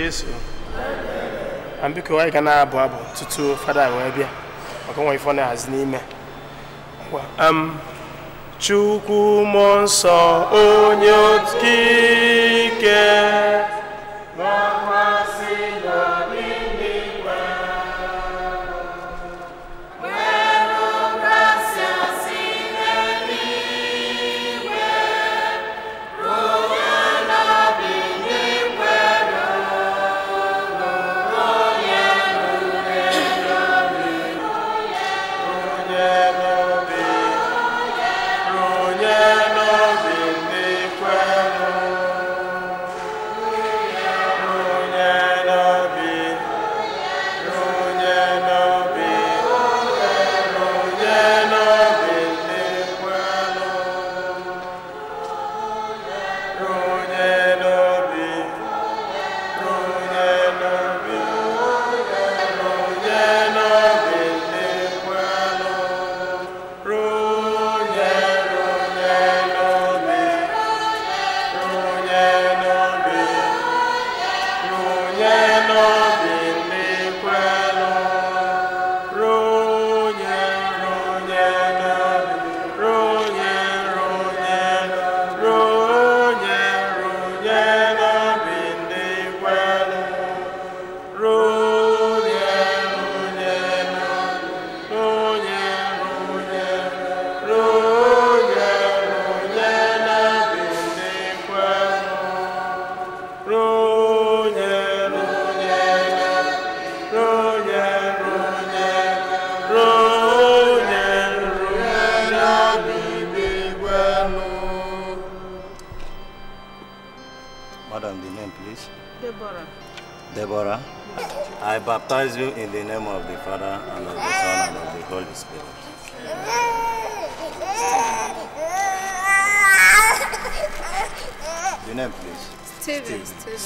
Jesu na biko anyị abụ tutu fada wee n'ime um, nsọ onye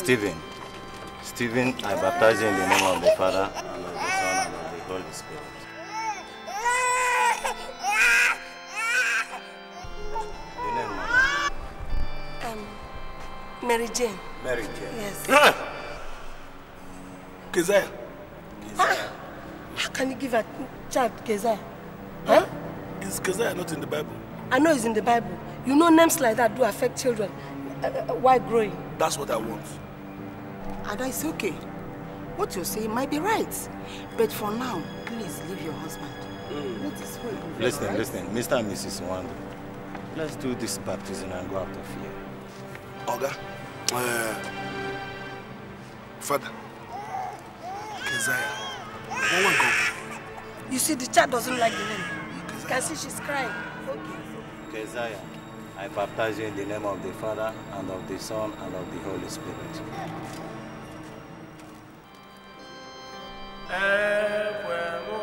Stephen. Stephen, I baptize you in the name of the Father, and of the Son, and of the Holy Spirit. The name, Mama? Um, Mary Jane. Mary Jane. Yes. Ah! Keziah. Ah! How can you give a child Keziah? Huh? Is Keziah not in the Bible? I know it's in the Bible. You know names like that do affect children uh, uh while growing. That's what I want. Ada is okay. What you say might be right. But for now, please leave your husband. Mm. Let Listen, right? listen, Mr. and Mrs. Wanda. Let's do this baptism and go out of here. Oga, uh, Father, Keziah, You see, the child doesn't like the name. You can see she's crying. Okay. Keziah. I baptize you in the name of the Father, and of the Son, and of the Holy Spirit. ẹ pẹ̀lú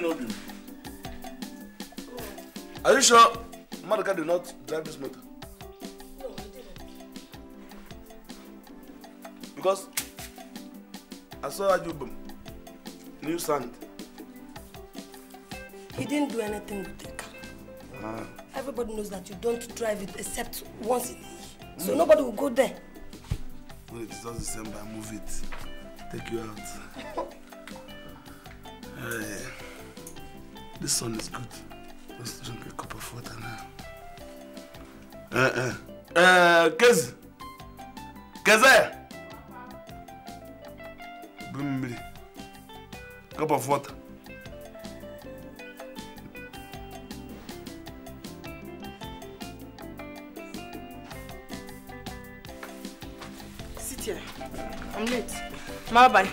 no do. Are you sure Maduka did not drive this motor? Because I saw Ajubum, new sand. He didn't do anything with the car. Ah. Everybody knows that you don't drive it except once in a year. Mm. So nobody will go there. Well, it's just the same, by move it. Take you out. This sun is good. Let's drink a cup of water now. Uh-uh. Uh, Kez. Keze. Bring cup of water. Sit here. I'm late. Bye bye.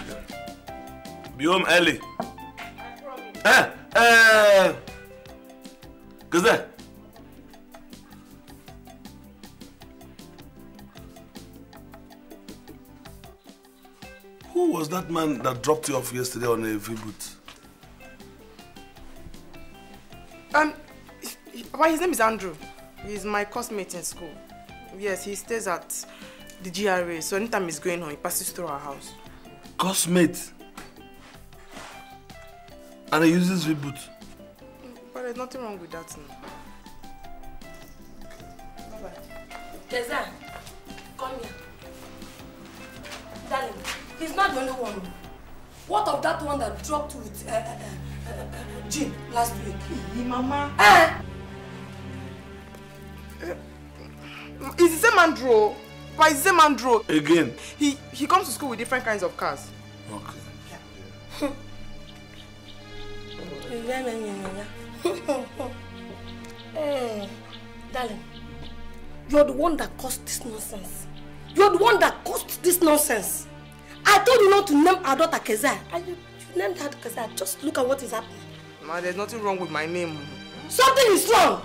Be home early. man that dropped you off yesterday on a V-boot? Um, well, his name is Andrew. He's my classmate in school. Yes, he stays at the GRA, so anytime he's going home, he passes through our house. Classmate. And he uses V-boot? But there's nothing wrong with that now. Bye-bye. He's not the only one. What of that one that dropped with uh, uh, uh, uh Jim last week? Hey, Mama. Eh? eh is the same Andrew. Why is the same Andrew. Again? He, he comes to school with different kinds of cars. Okay. Yeah. yeah, yeah, yeah, yeah. hey, darling, you're the one that caused this nonsense. You're the one that caused this nonsense name our daughter Kezia. And you, you named her Kezia. Just look at what is happening. Ma, there's nothing wrong with my name. Something is wrong.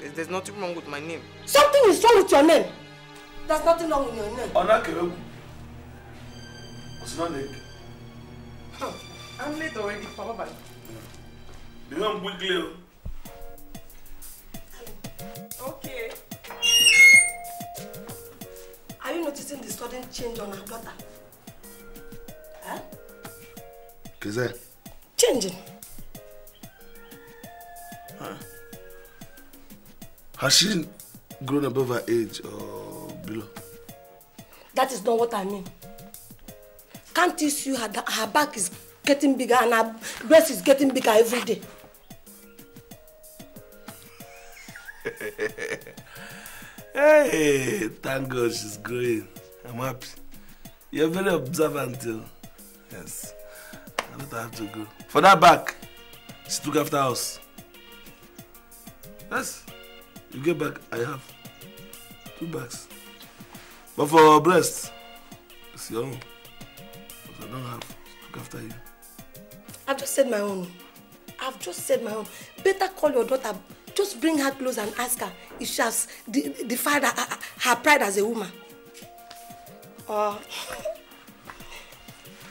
There's, there's nothing wrong with my name. Something is wrong with your name. There's nothing wrong with your name. Onakewegu. Osinanek. I'm late already, Papa. The name Bugleo. Okay. Are you noticing the sudden change on her daughter? Huh? Is that? Changing. Huh. Has she grown above her age or oh, below? That is not what I mean. Can't you see her, her back is getting bigger and her breast is getting bigger every day? hey, thank God she's growing. I'm happy. You're very observant. Too. Yes. I don't have to go. For that back, she took after us. Yes. You get back, I have two bags. But for breast, it's your own. But I don't have to look after you. I've just said my own. I've just said my own. Better call your daughter. Just bring her clothes and ask her if she has defied her, her pride as a woman. Or. Uh,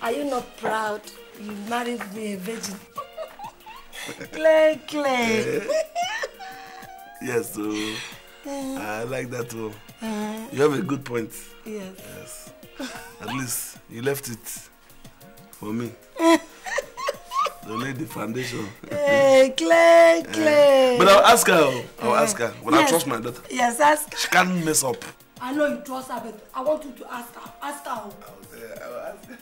Are you not proud you married me a virgin? clay, Clay. yes, so uh, I like that too. Uh, uh-huh. you have a good point. Yes. Yes. At least you left it for me. to lay the foundation. hey, Clay, Clay. Uh, but I'll ask her. Oh. I'll uh-huh. ask her. But yes. I trust my daughter. Yes, ask. She can't mess up. I know you trust her, but I want you to ask her. Ask her. I will say, I will ask her.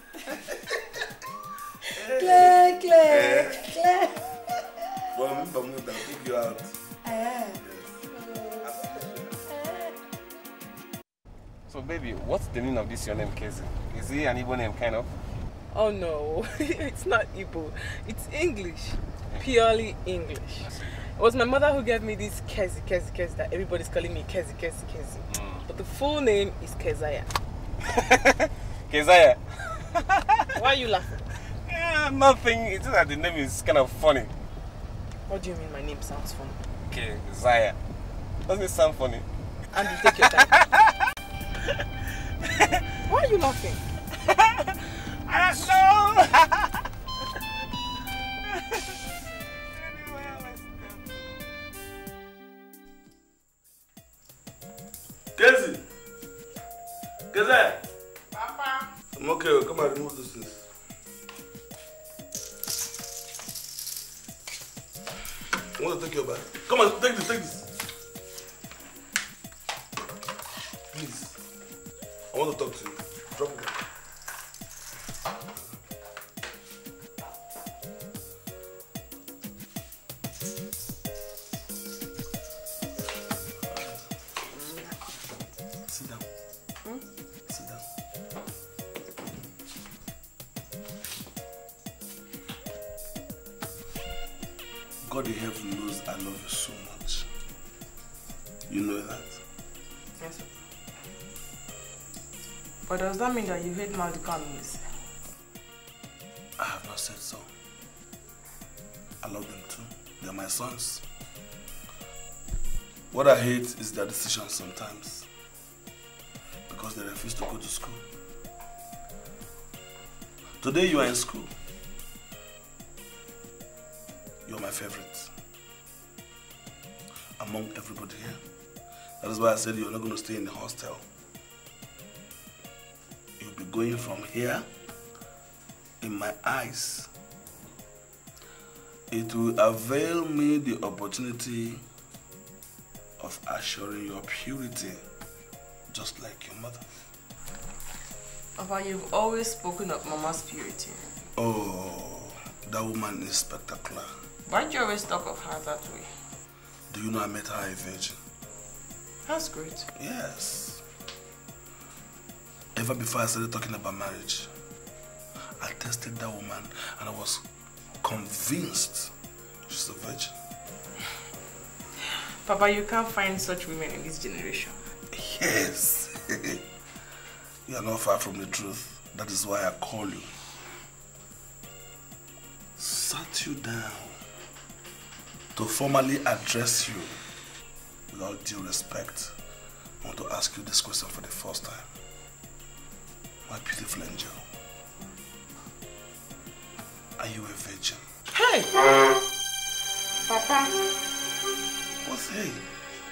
Claire, Claire, Claire. Well, remember, I'm going to take you out. Eh. So baby, what's the meaning of this your name Kezi? Is it an Igbo name kind of? Oh no, it's not Igbo. It's English. Purely English. It was my mother who gave me this Kezi, Kezi, Kezi that everybody's calling me Kezi, Kezi, Kezi. Mm. But the full name is Keziah. Keziah. Why are you laughing? Yeah, nothing. It's just that the name is kind of funny. What do you mean my name sounds funny? Keziah. Doesn't it sound funny? And you take your time. Why are you laughing? I don't know. Casey. Casey. Papa. I'm okay. Oh, come and remove those things. I want to take your bag. Come on, take this, take this. Please. I want to talk to you. Drop it. God in heaven knows I love you so much. You know that? Yes, sir. But does that mean that you hate Malika Mills? I have not said so. I love them too. They're my sons. What I hate is their decisions sometimes. Because they refuse to go to school. Today you are in school. You're my favorite. Among everybody here. That is why I said you're not going to stay in the hostel. You'll be going from here in my eyes. It will avail me the opportunity of assuring your purity, just like your mother. Papa, you've always spoken of Mama's purity. Oh, that woman is spectacular why do you always talk of her that way? Do you know I met her a virgin? That's great. Yes. Ever before I started talking about marriage, I tested that woman and I was convinced she's a virgin. Papa, you can't find such women in this generation. Yes. you are not far from the truth. That is why I call you. Sat you down to formally address you with all due respect, I want to ask you this question for the first time. My beautiful angel, are you a virgin? Hey! Papa! What's hey?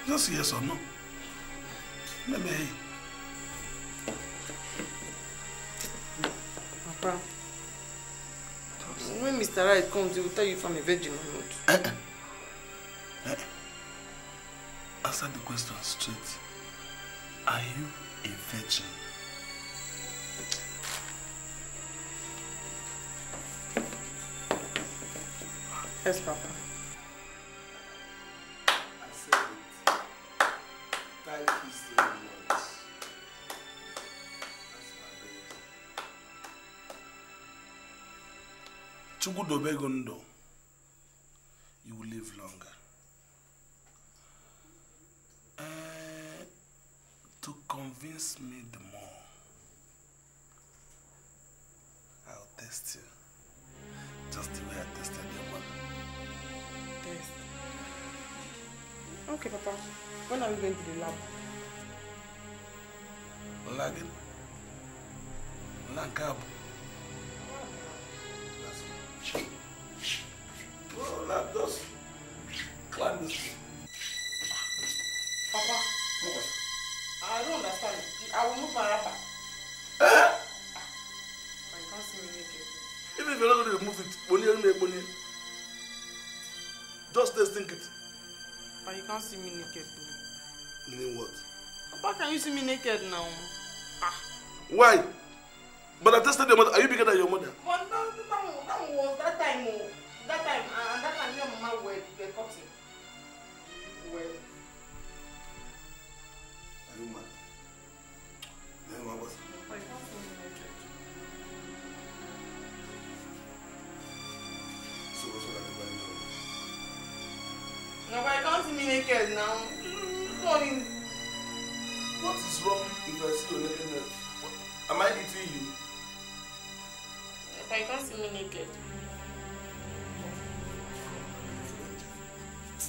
Just yes or no? Let me hey. Papa, when Mr. Right comes, he will tell you if I'm a virgin or not. Eh, eh. Answer the question straight. Are you a virgin? Yes, Papa. I Chukwu dobe gị ndụ. test me the more, I'll test you. Just the way I tested your mother. Test? Okay, Papa. When are we going to the lab? Lagging? Lagging? Even if you're not going to remove it, bonnie, bonnie, just let's it. But you can't see me naked. Meaning what? How can you see me naked now? Ah. Why? But I tested your mother. Are you bigger than your mother? But that, that, that was that time. Oh. That time, and that time your mama were, cutting. Well. Are you mad? naked now. Morning. Mm, what is wrong if I see you naked now? Am I eating you? But you can't see me naked.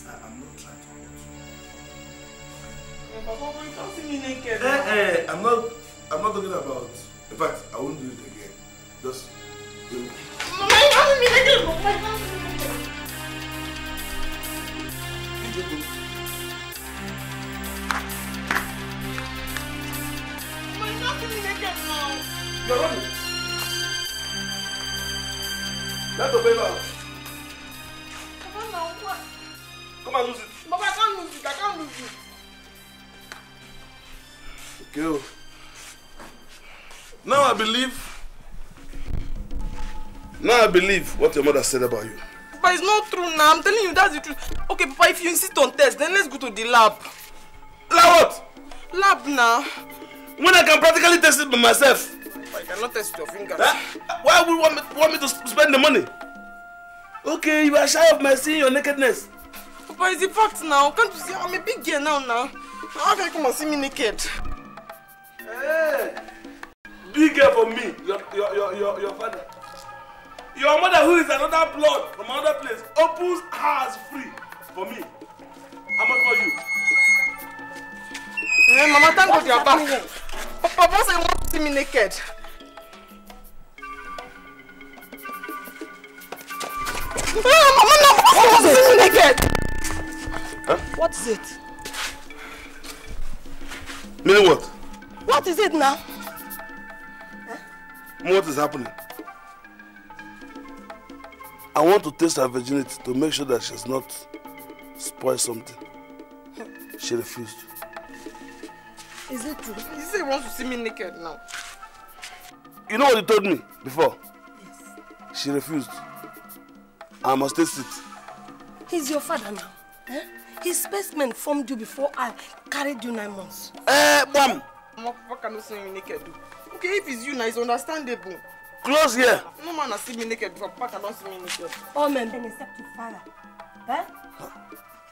I am not trying to hurt you. Yeah, Papa, you can't see me naked. Eh, eh, I'm not, I'm not talking about. In fact, I won't do it again. Just. Do Mama, you can't see me naked. Mama, you can't see me naked. Let não, paper out. Come on, Come and não? it. Baba, I can't não it. I não lose it. Okay. Não, I believe. Now I believe what your mother said about you. But it's not true now. I'm telling you that's the truth. Okay, Papa, if you insist on test, then let's go to the lab. Lab what? Lab now. when I can practically test it by myself. I cannot test your fingers. Huh? Eh? Why would you want me, want me to spend the money? Okay, you are shy of my seeing your nakedness. Papa, it's a fact now. Can't you see I'm a big girl now now? How can you come and see me naked? Hey! Eh. Big girl for me, your, your, your, your, your father. Your mother who is another blood from another place opens hers free for me. How much for you? Hey, eh, Mama, thank God you are back. Papa say you want to see me naked. Ah, Mama, no, Papa wants to see me naked. Huh? What is it? Meaning what? What is it now? Huh? What is happening? I want to test her virginity to make sure that she's not spoiled something. She refused. Is it true? He said he wants to see me naked now. You know what he told me before? Yes. She refused. I must taste it. He's your father now. Eh? His specimen formed you before I carried you nine months. Eh, bam! What can you see me naked do? Okay, if it's you now, it's understandable. Close here. No man has seen me naked before. Papa cannot see me naked. All men. Then except your father. Eh? Huh?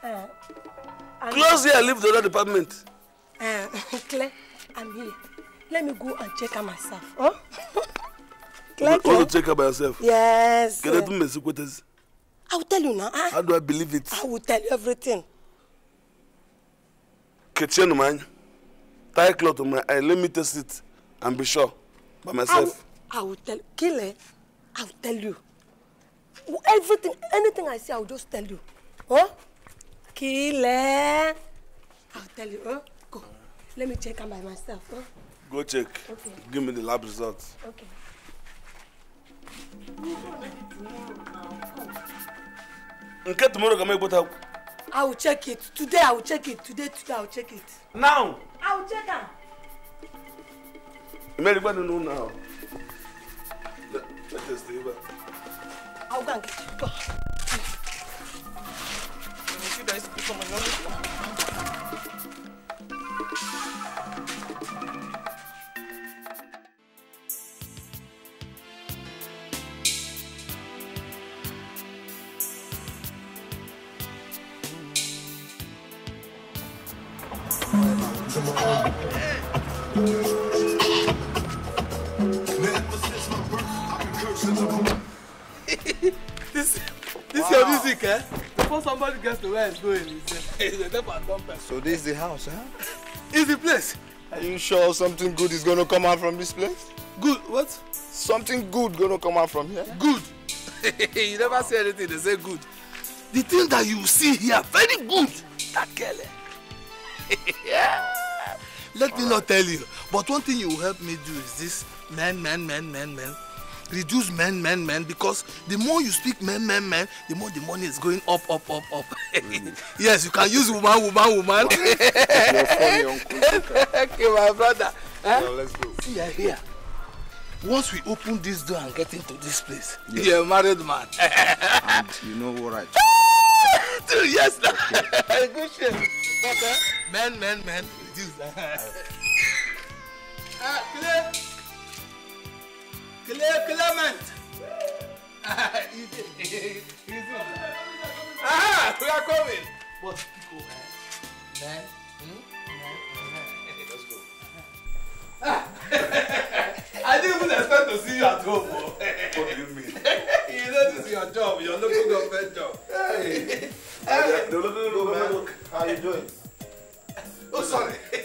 Eh. Close here, leave the other department. Um, Claire, I'm here. Let me go and check her myself. Huh? Claire, Claire. You to check her by yourself? Yes. Can I do my secretaries? I will tell you now. Huh? Ah. How do I believe it? I will tell you everything. Kitchen man, tie cloth on my eye. Let me test it and be sure by myself. I will, I will tell Kile. I will tell you. Everything, anything I say, I will just tell you. Huh? Kile. I will tell you. Huh? Let me check him by myself. Huh? Go check. Okay. Give me the lab results. Okay. Nke tomorrow can make both help. I will check it. Today I will check it. Today, today I will check it. Now! I will check them. Everybody know now. Let, let us stay back. I'll go and get you. Go. You see that is become another one. this this wow. your music, eh? Before somebody gets to where it's going, it's a never done So this is the house, huh? It's the place. Are you sure something good is gonna come out from this place? Good what? Something good gonna come out from here? Good. you never say anything, they say good. The thing that you see here, very good. That girl. eh? yeah. Let All me right. not tell you. But one thing you help me do is this men, men, men, men, men. Reduce men, men, men, because the more you speak men, men, men, the more the money is going up, up, up, up. Really? yes, you can use woman, woman, woman. okay, my brother. Huh? Eh? Well, let's go. See, you're here. Once we open this door and get into this place, yes. you're a married man. and you know what I do? yes, okay. good shit. Okay. Men, men, men. juice. ah, clear. Clear, Clement. Ah, easy. easy. Aha, we are coming. But pico, eh? Man. Hmm? Let's go. Ah. I didn't even expect to see you at home. bro. Oh. what do you mean? you know this is your job, your local government job. Hey. hey. hey. No, no, no, no, man. How are you doing? oh sorry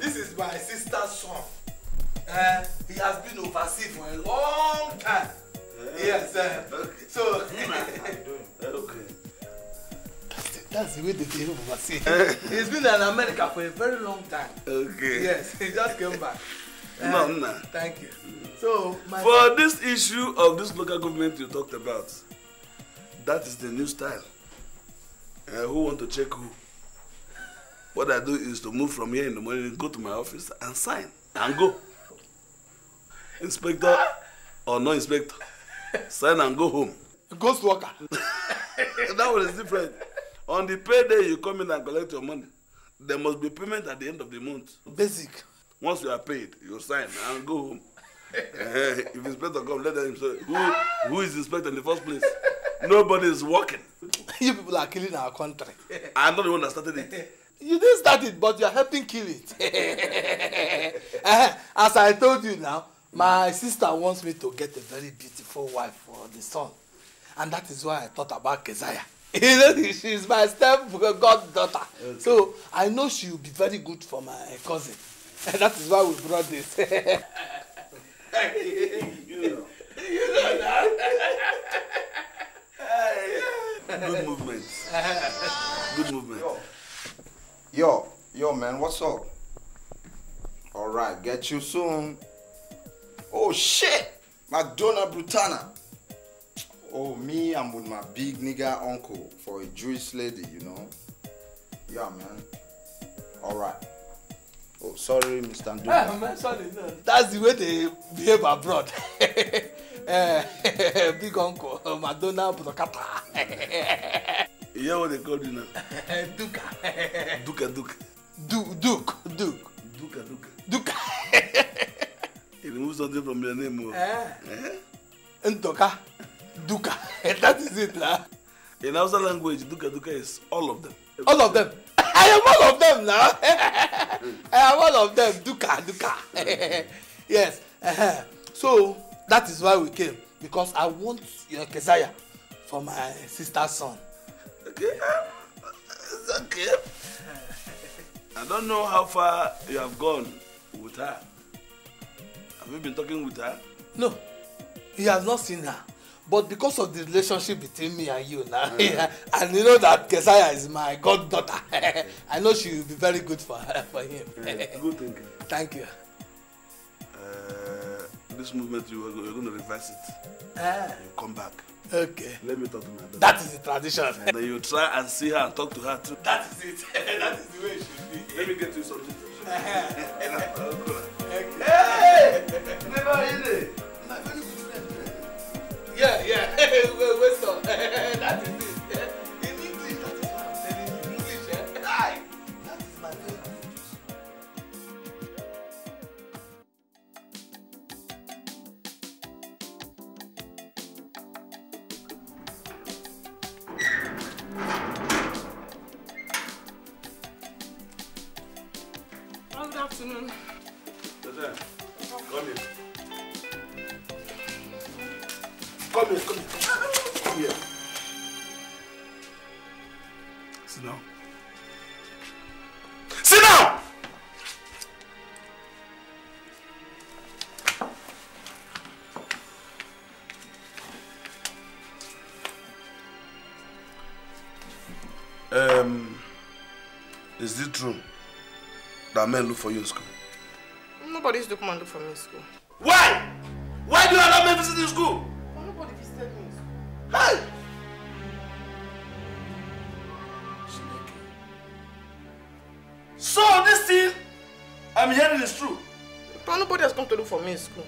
this is my sister's son uh, he has been overseas for a long time yeah. yes uh, okay. so okay that's the, that's the way they behave overseas eh. he's been in America for a very long time okay yes he just came back uh, no, no. thank you so my for this issue of this local government you talked about that is the new style uh, who want to check who What I do is to move from here in the morning, go to my office and sign and go. Inspector or no inspector, sign and go home. Ghost worker. that one is different. On the payday, you come in and collect your money. There must be payment at the end of the month. Basic. Once you are paid, you sign and go home. Eh, if inspector come, let them say, who, who is inspector in the first place? Nobody is working. you people are killing our country. I'm not the one that started it you didn't start it but you are helping kill it eh, as i told you now my sister wants me to get a very beautiful wife for the son and that is why i thought about keziah you know she is my step goddaughter okay. so i know she will be very good for my cousin and that is why we brought this. you know. you know that. good movement good movement. Yo, yo, man, what's up? All right, get you soon. Oh shit, Madonna Brutana. Oh, me, I'm with my big nigga uncle for a Jewish lady, you know. Yeah, man. All right. Oh, sorry, Mr. Ndo. Yeah, man, sorry. No. That's the way they behave abroad. Eh, big uncle, Madonna Brutana. You hear what they call you now? Eh, Duka. Duka, Duka. Du Duke, Duke. Duka, Duka. Duka. He removed something from your name. Eh? Eh? Ntoka. Duka. that is it, lah. In Hausa language, Duka, Duka is all of them. All of them? I am all of them now. I am all of them. Duka, Duka. yes. Uh-huh. So, that is why we came. Because I want your Kesaya for my sister's son. It's okay. I don't know how far you have gone with her. Have you been talking with her? No, he has not seen her. But because of the relationship between me and you now, mm. and you know that Kesaya is my goddaughter, I know she will be very good for her, for him. Mm, good thinking. Thank you. Uh, this movement, you are, you are going to reverse it. Uh. You come back. Okay. Let me talk to my daughter. That is the tradition. And then you try and see her and talk to her too. That is it. that is the way it should be. Let me get you something. Uh-huh. okay. Hey! Never in it. Yeah, yeah. Wait, wait, so. that is it. true that men look for you in school? Nobody's used to for me in school. Why? Why do you allow men visit in school? nobody visited me in school. Hey! So this thing I'm hearing is true. But nobody has come to look for me in school.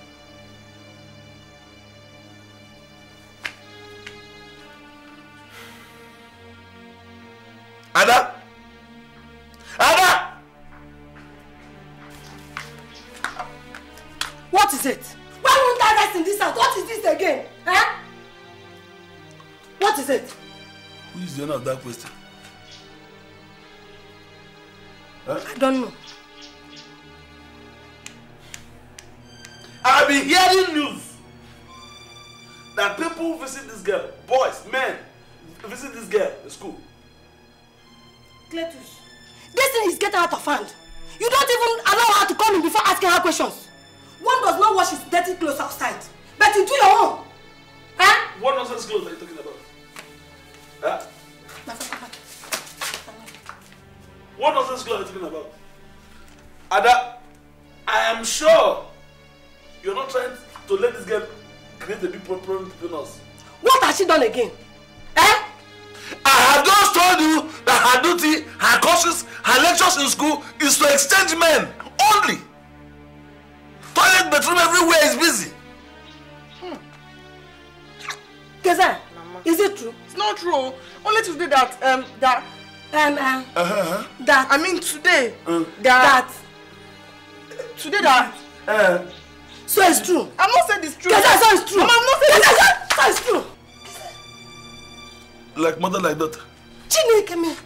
mother like daughter. Chinekeme.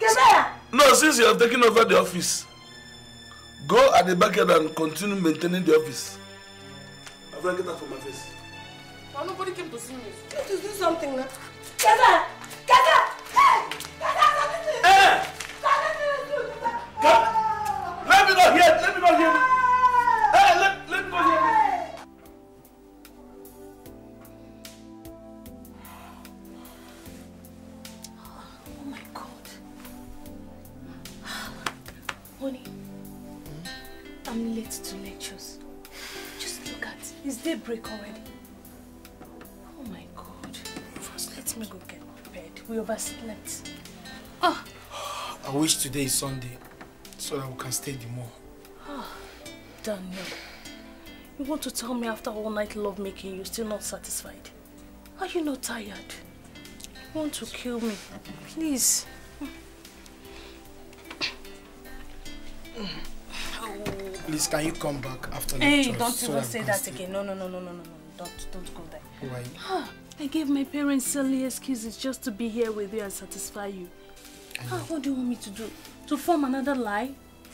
Kemera. No, since you have taken over the office, go at the backyard and continue maintaining the office. I'm going get that from my face. Well, nobody came to see me. You to do something now. Kemera! Kemera! Hey! Kemera, something to you! Hey! Something to you! Let me not hear! Let me not hear! late to lectures. Just look at It's daybreak already. Oh my god. First, let me go get bed. We overslept. Oh. I wish today is Sunday so that we can stay the more. Oh, Daniel. You want to tell me after all night love making you're still not satisfied? Are you not tired? You want to kill me? Please. Mm. Please, can you come back after hey, Hey, don't so even say that again. No, no, no, no, no, no, no. Don't, don't go there. Why? I gave my parents silly excuses just to be here with you and satisfy you. Ah, what do you want me to do? To form another lie?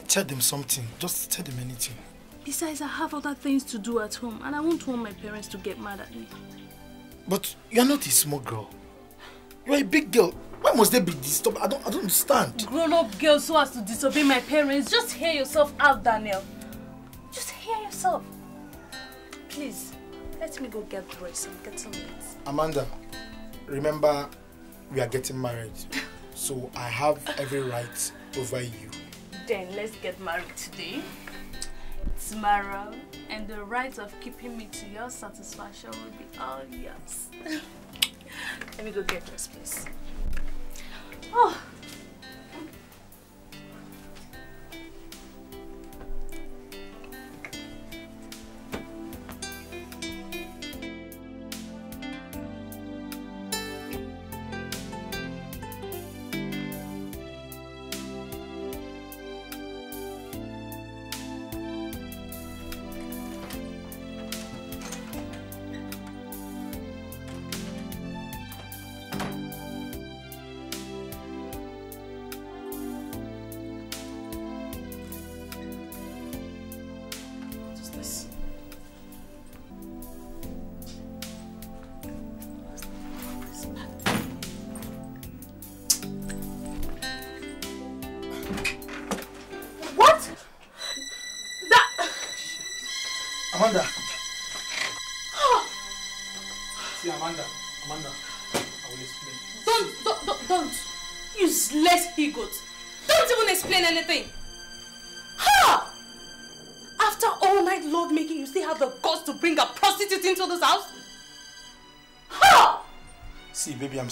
Tell them something. Just tell them anything. Besides, I have other things to do at home and I won't want my parents to get mad at me. But you're not a small girl. You're a big girl. Why must they be disturbed? I don't, I don't understand. Grown-up girls who has to disobey my parents, just hear yourself out, Daniel. Just hear yourself. Please, let me go get dressed. and get some. Amanda, remember, we are getting married. so I have every right over you. Then let's get married today, tomorrow, and the right of keeping me to your satisfaction will be all yours. Let me go get dressed, please. 哦。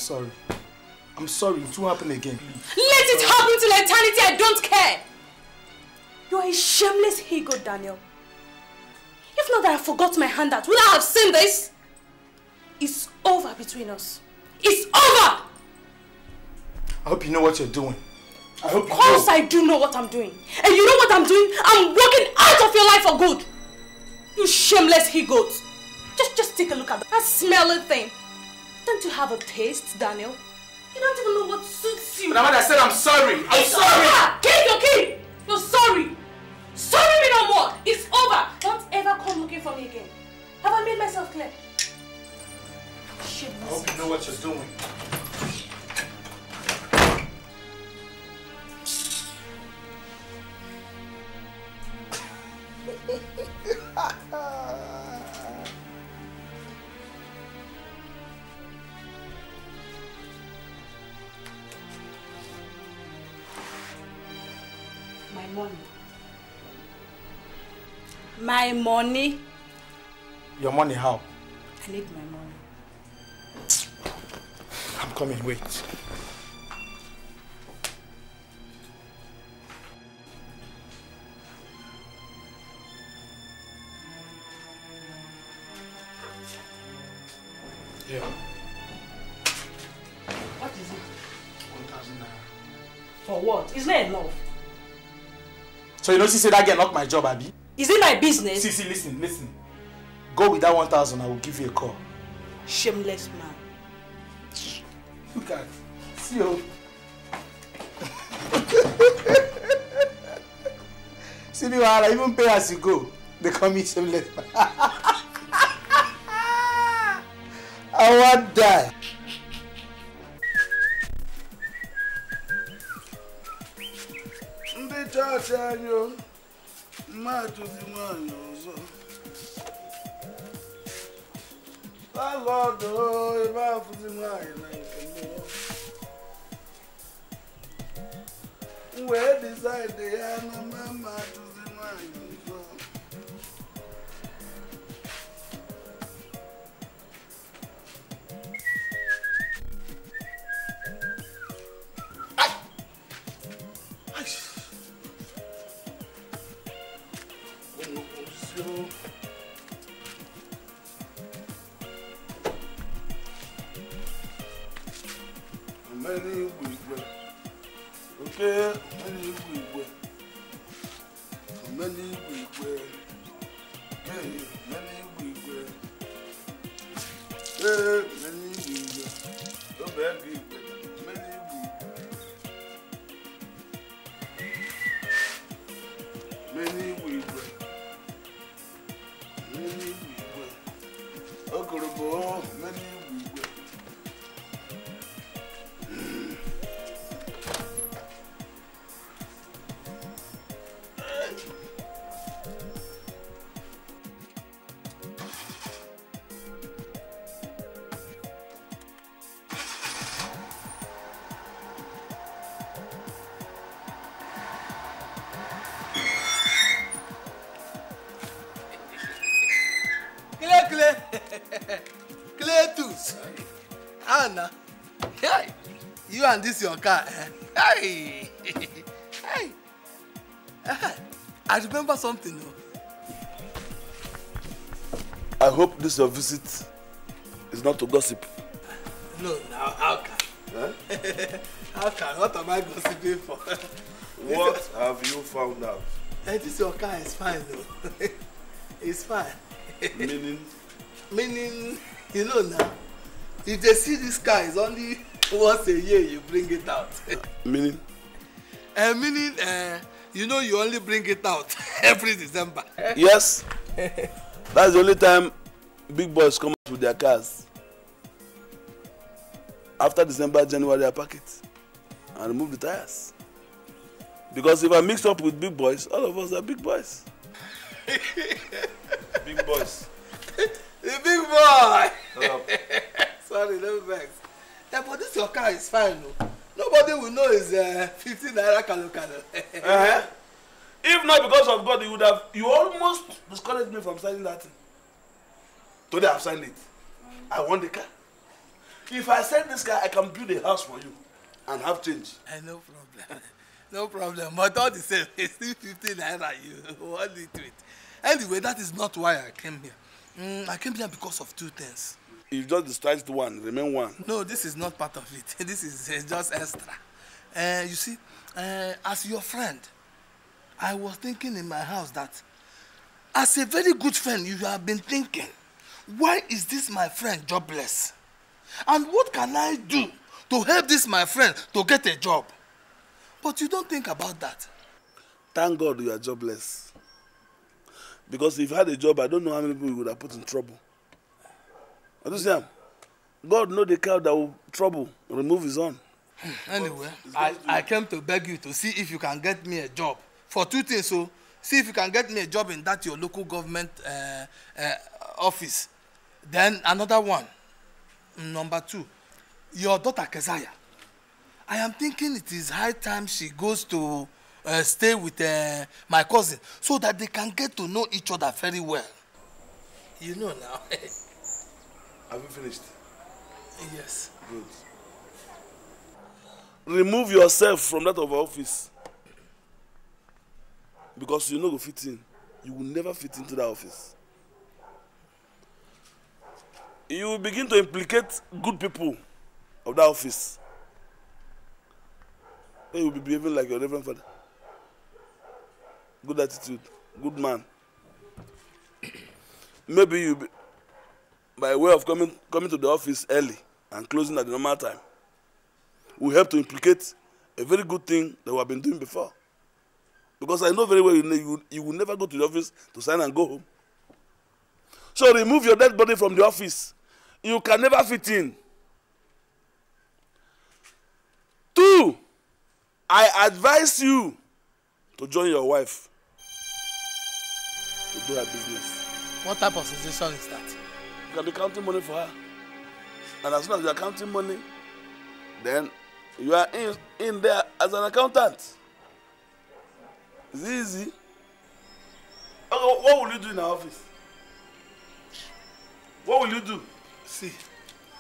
sorry. I'm sorry, it won't happen again. Let it happen till eternity, I don't care! You're a shameless ego, Daniel. If not that I forgot my handout, would I have seen this? It's over between us. It's over! I hope you know what you're doing. I hope you Of course know. I do know what I'm doing. And you know what I'm doing? I'm walking out of your life for good. You shameless he-goat. Just, just take a look at that smelly thing. Don't you have a taste, Daniel? You don't even know what suits you. Madam, I said I'm sorry. I'm it's sorry. Over. Take your key. You're sorry. Sorry me no more. It's over. Don't ever come looking for me again. Have I made myself clear? I hope you know what you're doing. My money. Your money how? I need my money. I'm coming, wait. Yeah. What is it? 1,000 naira. For what? It's not enough. So you know she said I get locked my job, Abby? Is it my business? See, see, listen, listen. Go with that 1,000, I will give you a call. Shameless man. Look at See you. Oh. see me, I even pay as you go. They call me shameless man. I want that. and this your car. Hey. Hey. I remember something. I hope this your visit is not to gossip. No, now how can? Huh? how can? What am I gossiping for? what have you found out? Hey, this your car is fine though. it's fine. Meaning? Meaning, you know now, if they see this car is only once a year you bring it out. meaning? Uh, eh, meaning uh, eh, you know you only bring it out every december. yes that's the only time big boys come out with their cars after december january i pack it and remove the tires because if i mix up with big boys all of us are big boys. big boys. the big boy. sorry no vex that for this your car is fine no. nobody will know it's uh, fifteen naira kalo kalo. uh-huh. if not because of God you would have you almost discouraged me from signing that thing today I have signed it I want the car if I sell this car I can build a house for you and have change. Uh, no problem no problem but all the same it's still fifteen naira you want it with anyway that is not why I came here mm, I came here because of two things you just discharged one remain one. no this is not part of it this is uh, just extra uh, you see uh, as your friend i was thinking in my house that as a very good friend you have been thinking why is this my friend jobless and what can i do to help this my friend to get a job but you don't think about that. thank god you are jobless because if you had a job i don't know how many people you would have put in trouble understand god know the cow that will trouble remove his own. Hmm, anyway i i came to beg you to see if you can get me a job for two things o so, see if you can get me a job in that your local government uh, uh, office then another one number two your daughter keziah i am thinking it is high time she goes to uh, stay with uh, my cousin so that they can get to know each other very well you know now. Have you finished? Yes. Good. Remove yourself from that of our office. Because you know you fit in. You will never fit into that office. You will begin to implicate good people of that office. Then you will be behaving like your reverend father. Good attitude, good man. Maybe you be by way of coming, coming to the office early and closing at the normal time will help to implicate a very good thing that we have been doing before. Because I know very well you, you, you will never go to the office to sign and go home. So remove your dead body from the office. You can never fit in. Two, I advise you to join your wife to do her business. What type of suggestion is that? You can be counting money for her. And as soon as you are counting money, then you are in, in there as an accountant. It's easy. Okay, what will you do in her office? What will you do? See.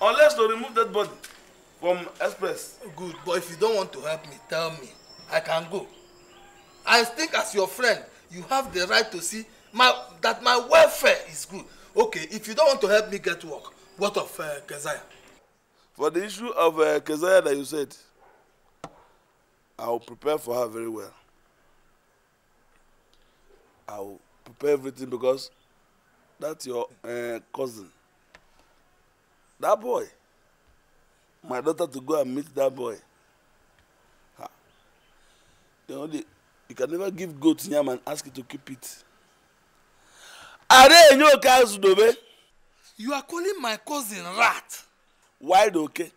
Unless to remove that body from Express. Good, but if you don't want to help me, tell me. I can go. I think as your friend, you have the right to see my, that my welfare is good okay, if you don't want to help me get work, what of uh, Keziah? For the issue of uh, Keziah that you said, I will prepare for her very well. I will prepare everything because that's your uh, cousin. That boy. My daughter to go and meet that boy. Ha. You, know, the, you can never give goat yam and ask it to keep it. Are enye oke azụ You are calling my cousin rat. Why oke. Okay.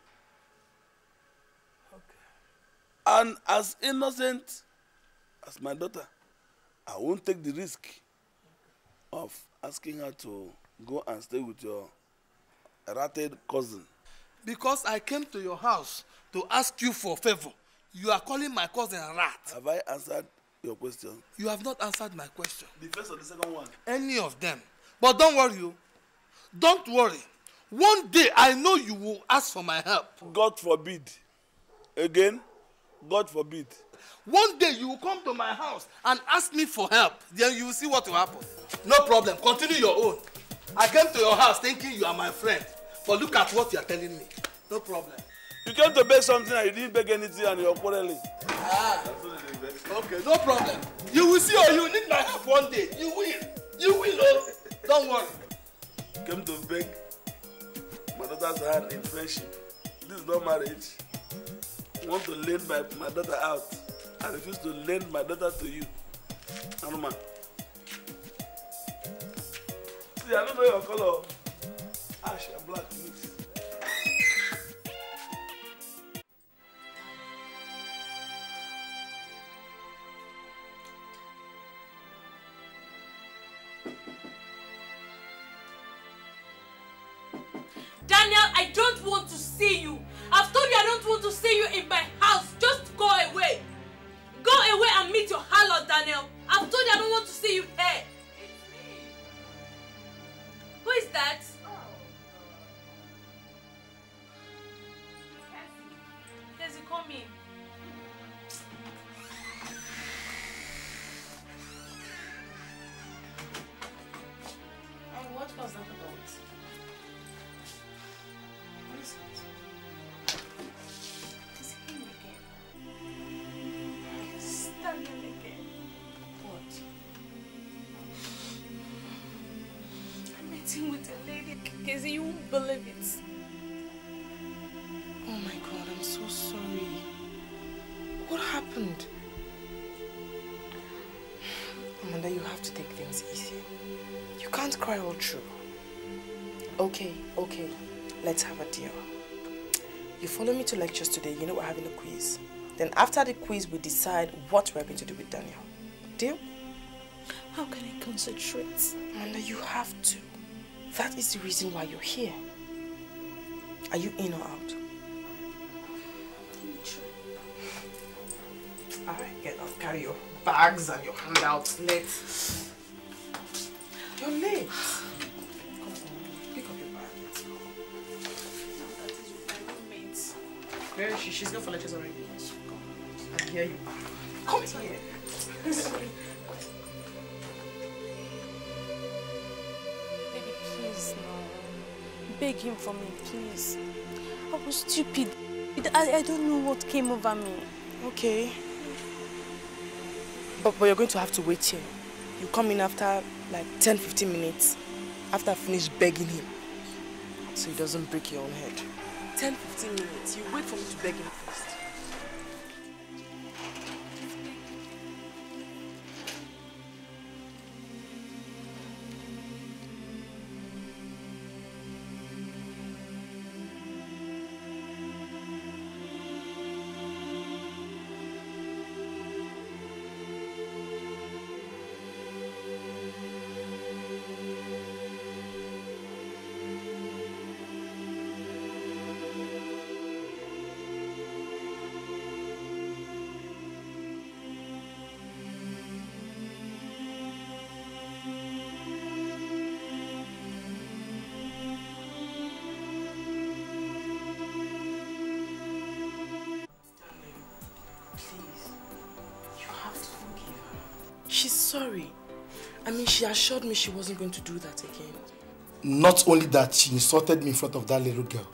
And as innocent as my daughter, I won't take the risk of asking her to go and stay with your ratted cousin. Because I came to your house to ask you for favor. You are calling my cousin rat. Have I answered your question. You have not answered my question. The first or the second one? Any of them. But don't worry, you. Oh. Don't worry. One day I know you will ask for my help. God forbid. Again, God forbid. One day you will come to my house and ask me for help. Then you will see what will happen. No problem. Continue your own. I came to your house thinking you are my friend. But look at what you are telling me. No problem. You came to beg something and you didn't beg anything and you're quarreling. Ah. Okay, no problem. You will see or you need my help one day. You will. You will, oh. Don't worry. Came to beg my daughter's hand in friendship. This is not marriage. want to lend my, my daughter out. I refuse to lend my daughter to you. Anuma. See, I don't know your color. Ash and black, please. I don't want to see you. I've told you I don't want to see you in my house. Just go away. Go away and meet your harlot, Daniel. I've told you I don't want to see you Casey, you won't believe it. Oh my God, I'm so sorry. What happened? Amanda, you have to take things easy. You can't cry all through. Okay, okay, let's have a deal. You follow me to lectures today, you know we're having a quiz. Then after the quiz, we decide what we're going to do with Daniel. Deal? How can I concentrate? Amanda, you have to. That is the reason why you're here. Are you in or out? Alright, get off. Carry your bags and your handouts. Let's... You're late. Where is she? She's gone for lectures already. I hear you. Come here. him for me, please. I was stupid. I, I don't know what came over me. Okay. But, but you're going to have to wait here. You come in after like 10, 15 minutes. After I finish begging him. So he doesn't break your own head. 10, 15 minutes. You wait for me to beg him first. She assured me she wasn't going to do that again. Not only that, she insulted me in front of that little girl.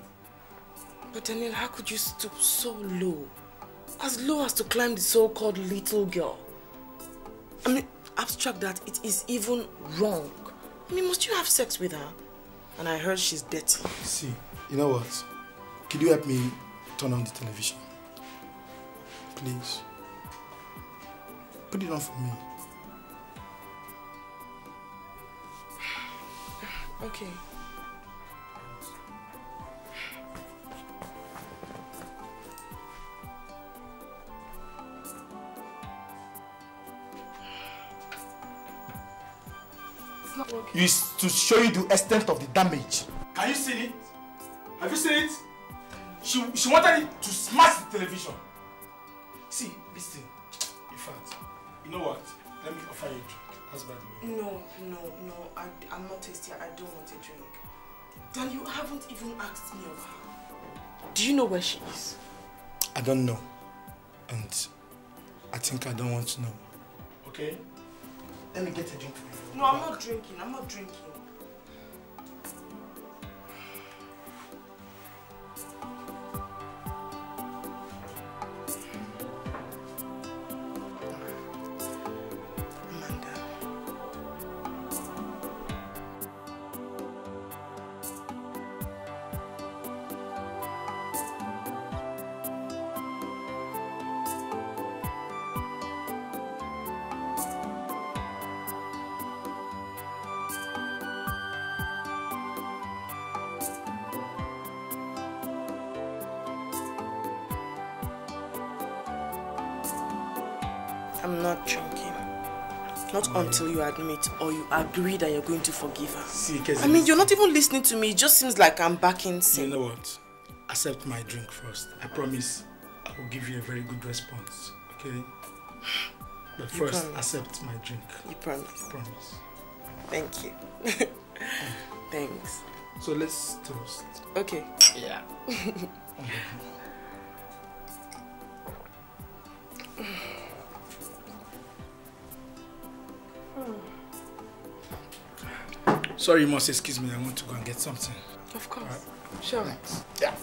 But Daniel, how could you stoop so low? As low as to climb the so-called little girl. I mean, abstract that, it is even wrong. I mean, must you have sex with her? And I heard she's dead. See, you know what? Could you help me turn on the television? Please. Put it on for me. Okay. Okay. Is to show you the extent of the damage. Can you see it? Have you seen it? She, she wanted it to smash the television. See, listen. In fact, you know what? Let me offer you a drink. Husband? No, no, no. I, I'm not thirsty. I don't want a drink. Dan, you haven't even asked me of her. Do you know where she is? I don't know. And I think I don't want to know. Okay? Let me get a drink for you. No, I'm not drinking. I'm not drinking. until you admit or you agree that you're going to forgive her. See, I mean, you're not even listening to me. It just seems like I'm backing sin. You know what? Accept my drink first. I promise I will give you a very good response, okay? But first, accept my drink. You promise? I promise. Thank you. Thanks. So let's toast. Okay. Yeah. okay. Sorry, you must excuse me. I want to go and get something. Of course. Right. Sure. Yeah.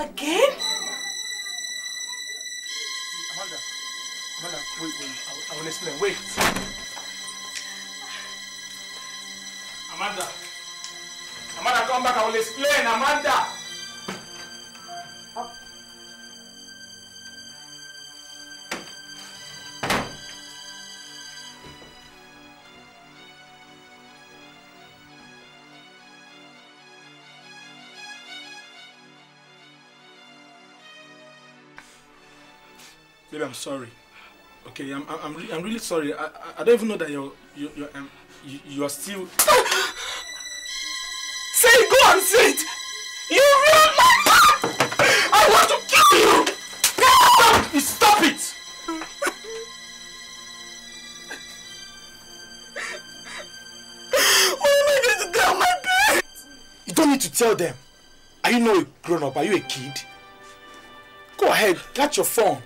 Again? See, Amanda, Amanda, wait, wait, I, I will explain. Wait. Amanda, Amanda, come back, I will explain, Amanda. Baby, I'm sorry. Okay, I'm I'm re I'm really sorry. I, I I don't even know that you're you you're um, you, you are still. say it, go and say it. You ruined my man. I want to kill you. stop it. what am I going to tell my parents? You don't need to tell them. Are you not a grown up? Are you a kid? Go ahead, catch your phone.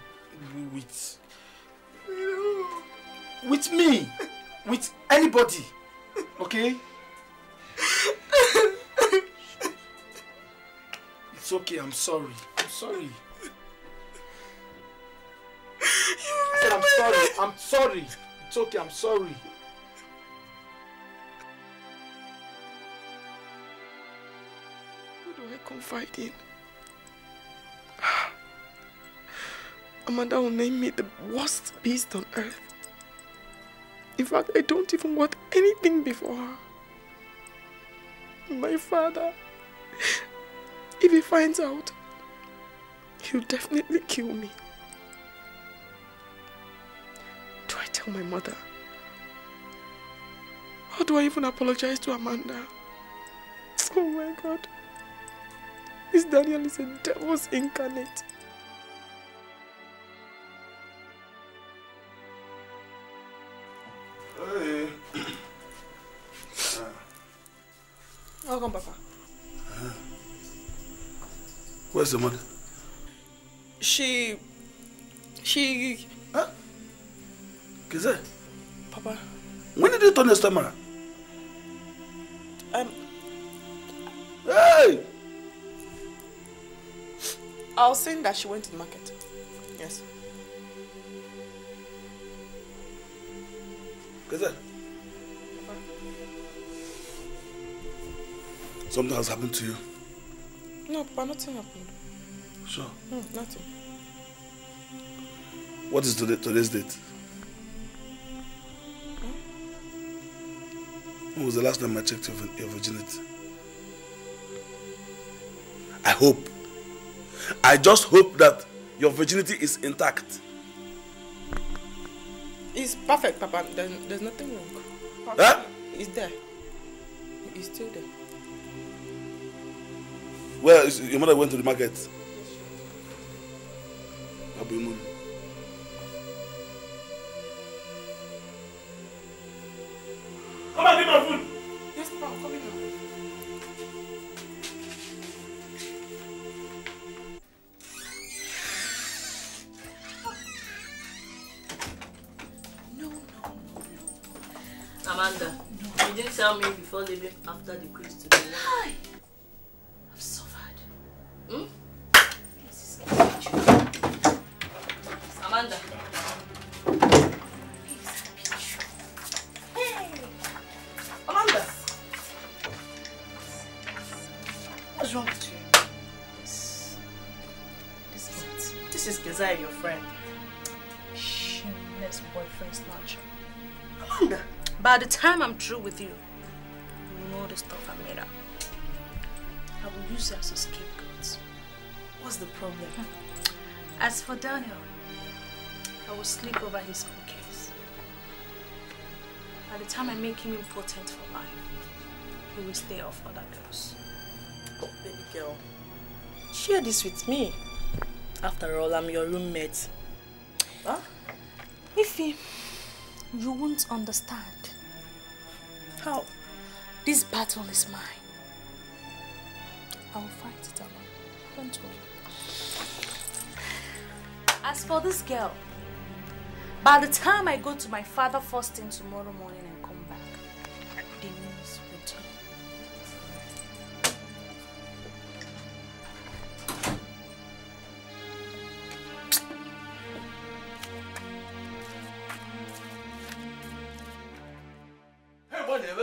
With me? With anybody? Okay? It's okay, I'm sorry. I'm sorry. I said I'm sorry. I'm sorry. It's okay, I'm sorry. Who do I confide in? Ah. Amanda will name me the worst beast on earth. In fact, I don't even want anything before her. My father, if he finds out, he'll definitely kill me. Do I tell my mother? How do I even apologize to Amanda? Oh my God. This Daniel is a devil's incarnate. welcome, Papa. Where's the mother? She... She... Huh? Kize? Papa. When did you turn the stomach? Um... Hey! I was saying that she went to the market. Yes. Kize? Something has happened to you? No, Papa, nothing happened. Sure? No, nothing. What is today, today's date? Hmm? When was the last time I checked your, your virginity? I hope. I just hope that your virginity is intact. It's perfect, Papa. There's, there's nothing wrong. Huh? It's there. It's still there. Well, your mother went to the market. come true with you. You know the stuff I'm made up. I will use you as a scapegoat. What's the problem? Hmm. As for Daniel, I will sleep over his own case. By the time I make him important for life, he will stay off other girls. Oh, baby girl, share this with me. After all, I'm your roommate. Huh? Ify, you won't understand. How? This battle is mine. I will fight it alone. Don't worry. As for this girl, by the time I go to my father first thing tomorrow morning, Thank you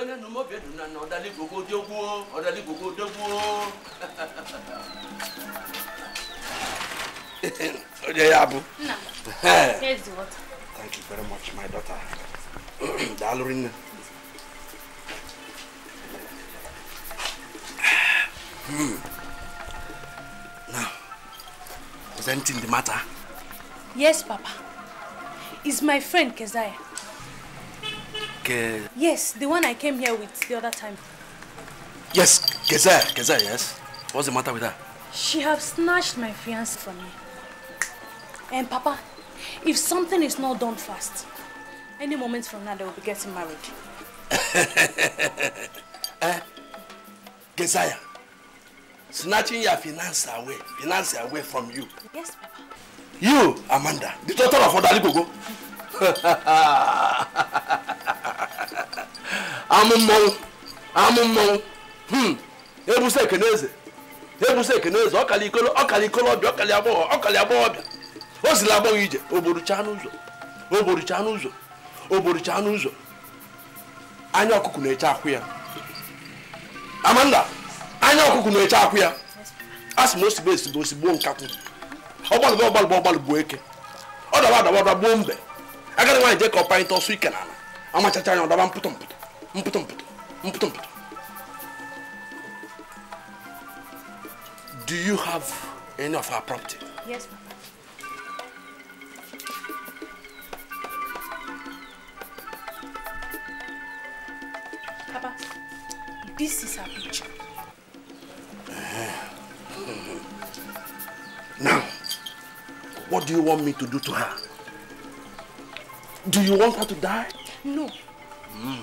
very much, my daughter. Darling. hmm. Now, presenting the matter. Yes, Papa. It's my friend, Keziah. uh... Yes, the one I came here with the other time. Yes, Geza, Geza, yes. What's the matter with her? She have snatched my fiancé from me. And Papa, if something is not done fast, any moment from now they will be getting married. uh, eh? Gezaya, snatching your finance away, finance away from you. Yes, Papa. You, Amanda, the daughter of Odali Gogo. amụ mmọnwụ amụ mmọnwụ hmm. ebusa ekeneze ebusa ekeneze ọkala ikolo ọkala ikolobịa ọkala agbọghọ ọkala agbọghọbịa o zila agbọghọ ije ogborucha n'ụzọ ogborucha n'ụzọ ogborucha n'ụzọ anya ọkụkụ na-eche akwụ ya amanda anya ọkụkụ na-eche akwụ ya a sị m osigbo esigbo osigbo nkakwụ ọgbalụgba ọgbalụgba ọgbalụgbu eke ọ daba adaba ọdaba gbuo mbe agadi nwaanyị jee ka ọ panyịta ọsọ ike n'ala amachachaa anya ọdaba mpụtọ mpụtọ Do you have any of our property? Yes, Papa. Papa, this is our picture. Uh-huh. Now, what do you want me to do to her? Do you want her to die? No,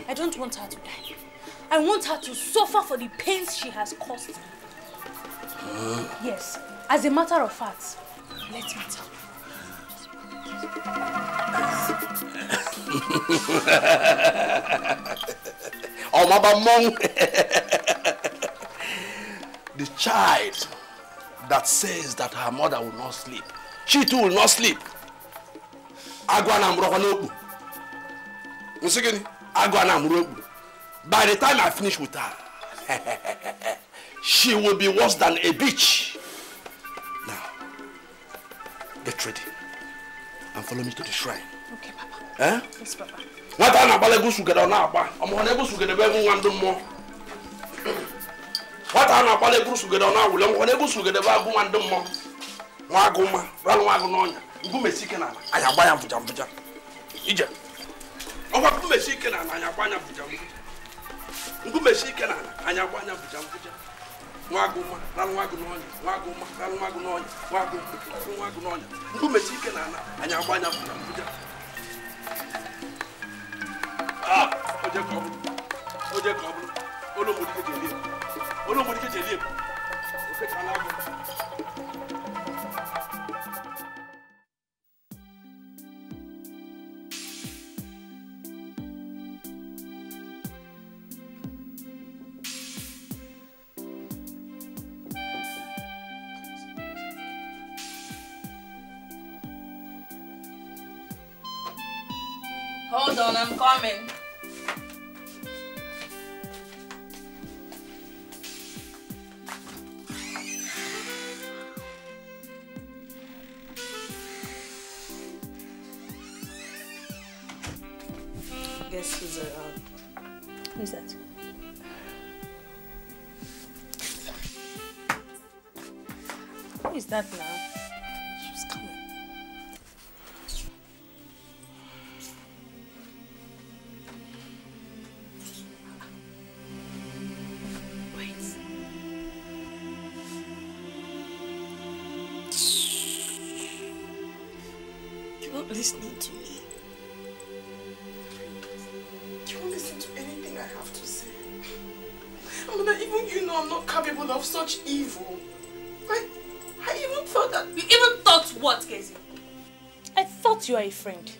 I don't want her to die. I want her to suffer for the pains she has caused. me. Yes, as a matter of fact, let me tell you. oh, Mama monk, the child that says that her mother will not sleep, she too will not sleep. Agwa na mroko agụ na amụrụ okpuru by the time i finish with her she will be worse than a beach now get ready and follow me to the shrine okay papa eh? yes papa nwata na-agbala egwu sugere ọ na-agba ọmụhụ na egwu bụ egwu ndị mmụọ nwata na na-awụli nwa nwa nwa nwa agụ agba ya mfụja ọkwa nkumechi ike n'ala anyị agba anya bụja nkwụja nkumechi ike n'ala anyị agba anya bụja nkwụja nwa gị ụma ralụ nwa gị n'ọnya nwa gị ụma ralụ nwa gị n'ọnya nwa gị ralụ nwa gị n'ọnya nkumechi ike n'ala anyị agba anya bụja nkwụja ah, oje ka ọ bụrụ oje ka ọ bụrụ olu mgbodike ji elie okechala agụ Hold on, I'm coming. stop listening to me. You won't listen to anything I have to say. I even you know I'm not capable of such evil. I, I even thought that... You even thought what, Casey? I thought you were a friend.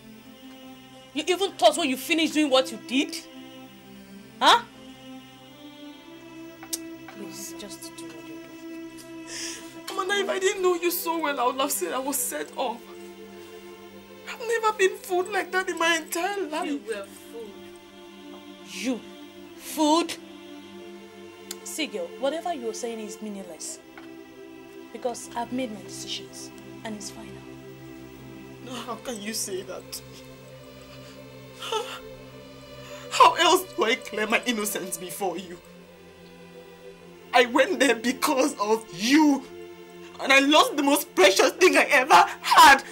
You even thought when you finished doing what you did? Huh? Please, just do what you do. Amanda, if I didn't know you so well, I would have said I was set up never been fooled like that in my entire life. You were fooled. You? Fooled? See, girl, whatever you're saying is meaningless. Because I've made my decisions, and it's final. how can you say that? How else do I claim my innocence before you? I went there because of you. And I lost the most precious thing I ever had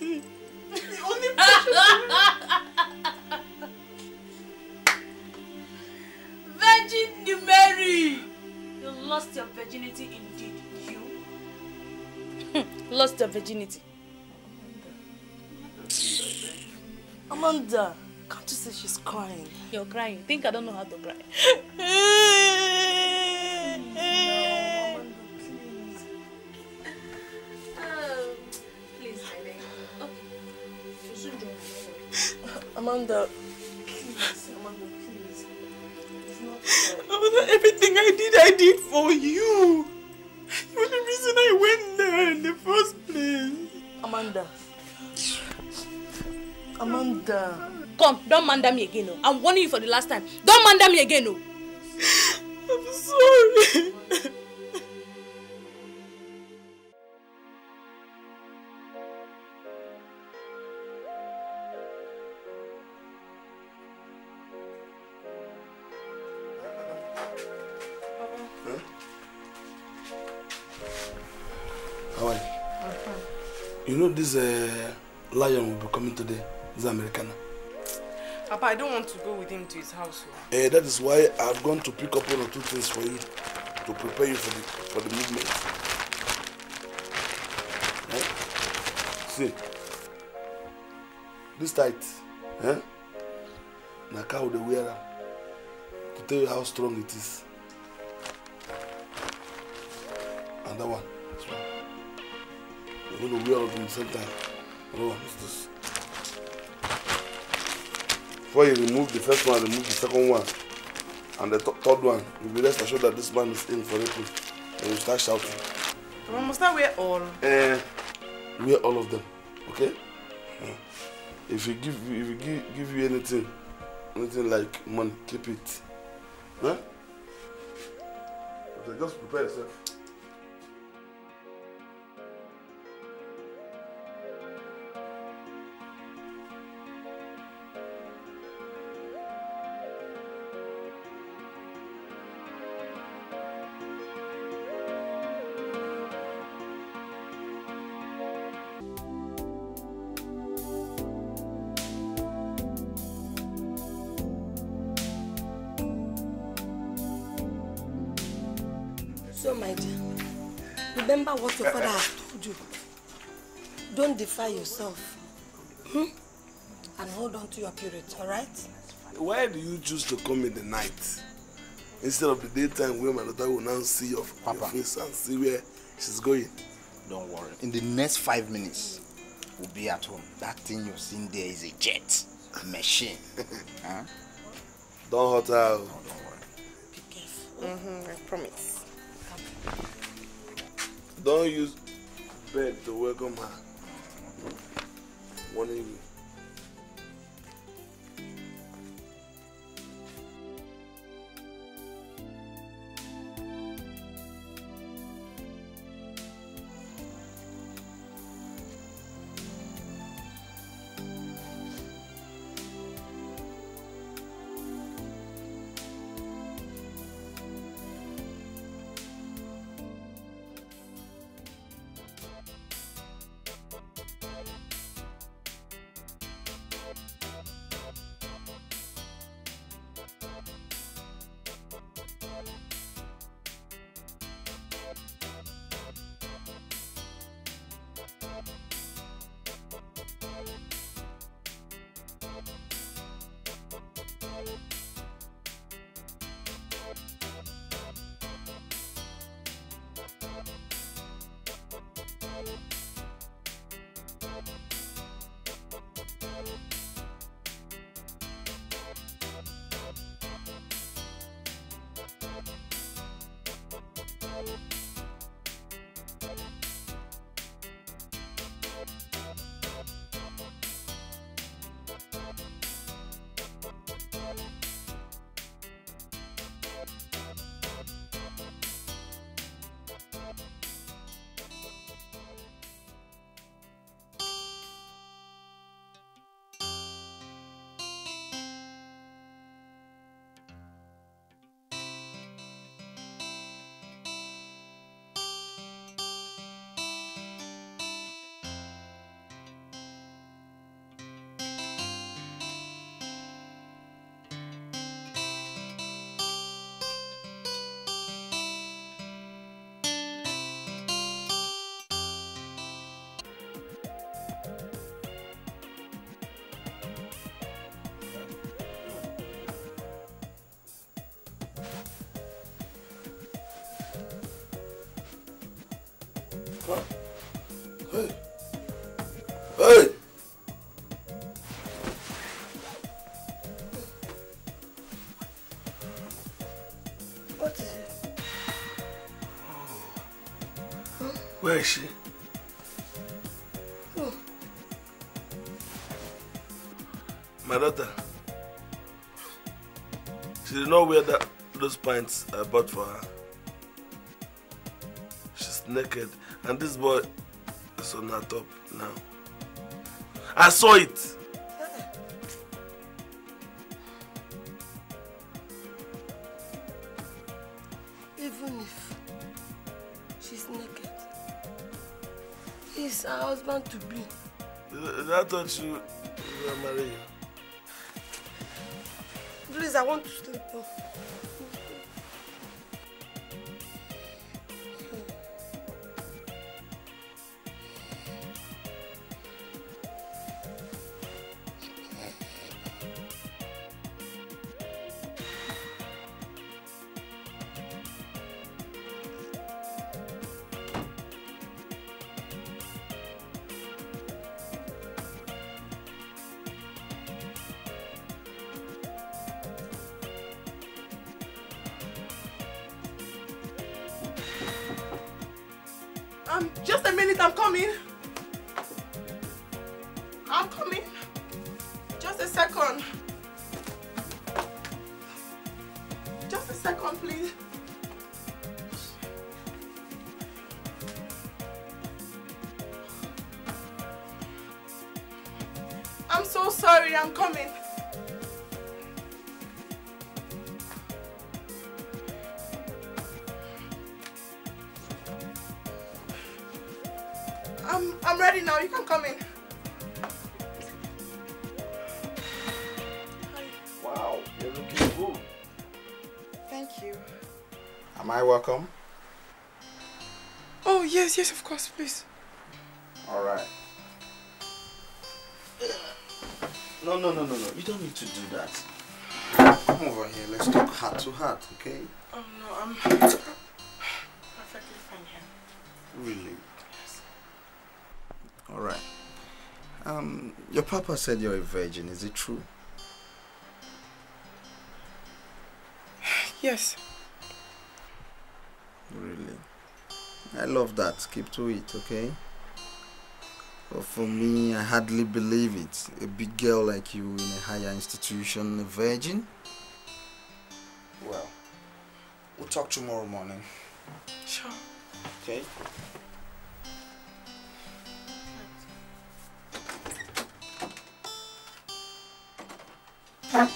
me. The only Virgin Mary! You lost your virginity indeed, you. lost your virginity. Amanda, can't you see she's crying? You're crying. Think I don't know how to cry. Amanda, please, Amanda, please. Amanda, everything I did, I did for you. The reason I went there in the first place. Amanda. Amanda. Come, don't mander me again. No. Oh. I'm warning you for the last time. Don't mander me again. No. Oh. this uh, lion will be coming today, this American. Papa, I don't want to go with him to his house. Uh, that is why I've gone to pick up one or two things for you to prepare you for the for the movement. Eh? See, this tight, eh? Na cow the wearer to tell you how strong it is. And that one. you know, we all do the same Before you remove the first one, remove the second one, and the third one. You'll be rest assured that this man is in for it. and you start shouting. We must I wear all? Uh, wear all of them, okay? Yeah. If he give you, if he give, give you anything, anything like money, keep it. Huh? Okay, just prepare yourself. Purify yourself. Hmm? And hold on to your purity, alright? Why do you choose to come in the night? Instead of the daytime where my daughter will now see your, Papa. your face and see where she's going. Don't worry. In the next five minutes, we'll be at home. That thing you're seeing there is a jet machine. huh? Don't hurt her. No, don't worry. Be careful. Mm-hmm, I promise. Don't use bed to welcome her one of the What is it? Where is she? Oh. My daughter. She did not wear that, those pants I bought for her. She's naked And this boy is on our top now. I saw it. Even if she's naked, he's her husband to be. That thought you were marrying. Please, I want to sleep. Off. welcome? Oh, yes, yes, of course, please. All right. No, no, no, no, no. You don't need to do that. Come over here. Let's talk heart to heart, okay? Oh, no, I'm perfectly fine here. Really? Yes. All right. Um, your papa said you're a virgin. Is it true? Yes. I love that. Keep to it, okay? But for me, I hardly believe it. A big girl like you in a higher institution, a virgin? Well, we'll talk tomorrow morning. Sure. Okay? Huh?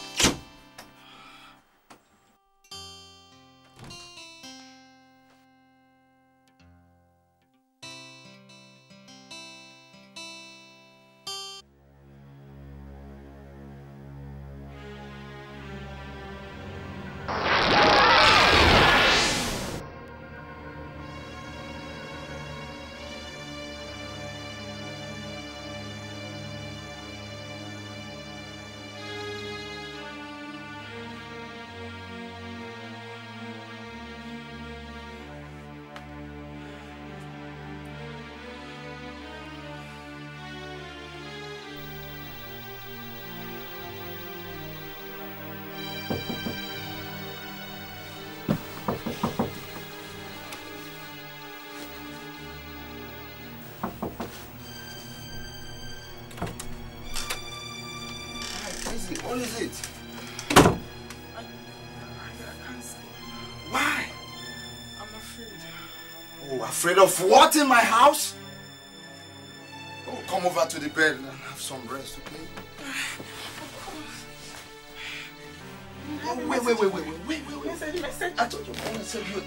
Afraid of what in my house? Oh, come over to the bed and have some rest, okay? Oh, wait, wait, wait, wait, wait, wait, wait, wait. I told you, I want you. Wait,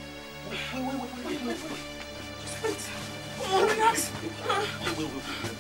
wait, wait, wait, wait, wait, wait. Just wait. Come Wait, wait, wait, wait.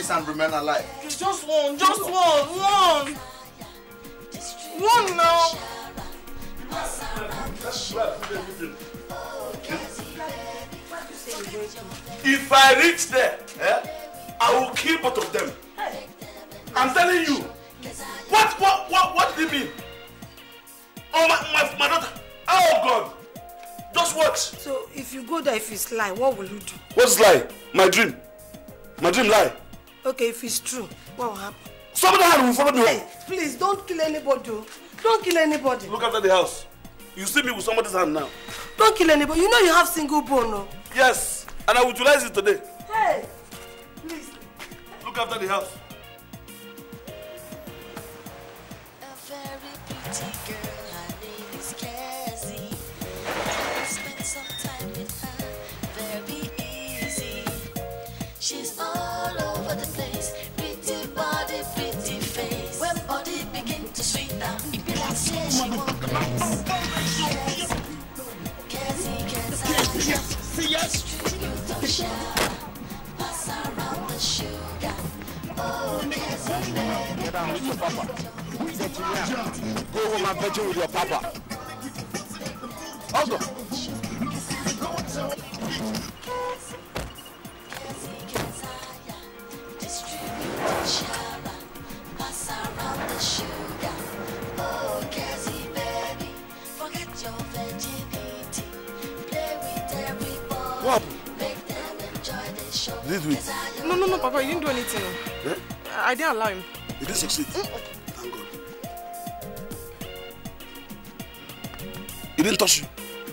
this and remain alive? Just one, just one, one. One now. If I reach there, yeah, I will kill both of them. I'm telling you. What what what what do you mean? Oh my my, my daughter. Oh God. Just watch. So if you go there, if it's lie, what will you do? What's lie? My dream. My dream lie. Okay, if it's true, what will happen? Somebody will follow me home. Please, don't kill anybody. Oh. Don't kill anybody. Look after the house. You see me with somebody's hand now. Don't kill anybody. You know you have single bone. No? Oh. Yes, and I will utilize it today. Hey, please. Look after the house. A very pretty girl. motherfucking mouth. See Go with your papa. Distribute the sugar, pass around the sugar. This week? No, no, no, Papa, you didn't do anything. Eh? I didn't allow him. He didn't succeed. Mm. Thank God. He didn't touch you?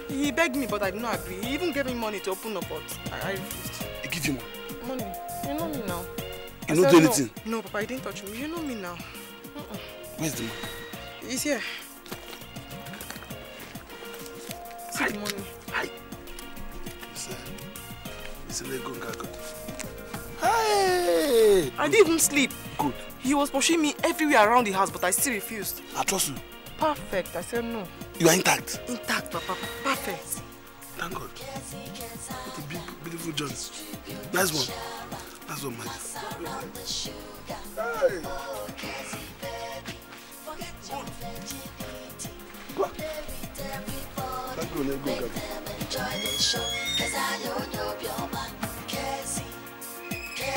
He begged me, but I did not agree. He even gave me money to open up, pot. I, I refused. He gave you money? Money. You know me now. You don't do anything? No, no, Papa, he didn't touch me. You know me now. Uh-uh. Where's the money? He's here. See Hi. the money. Hi. It's, a Lego Gagot. Hey! I didn't even sleep. Good. He was pushing me everywhere around the house, but I still refused. I trust you. Perfect. I said no. You are intact? Intact, Papa. Perfect. Thank God. What a big, beautiful journey. Nice one. That's one man. Hey! Good. Thank you, let go, Gabby.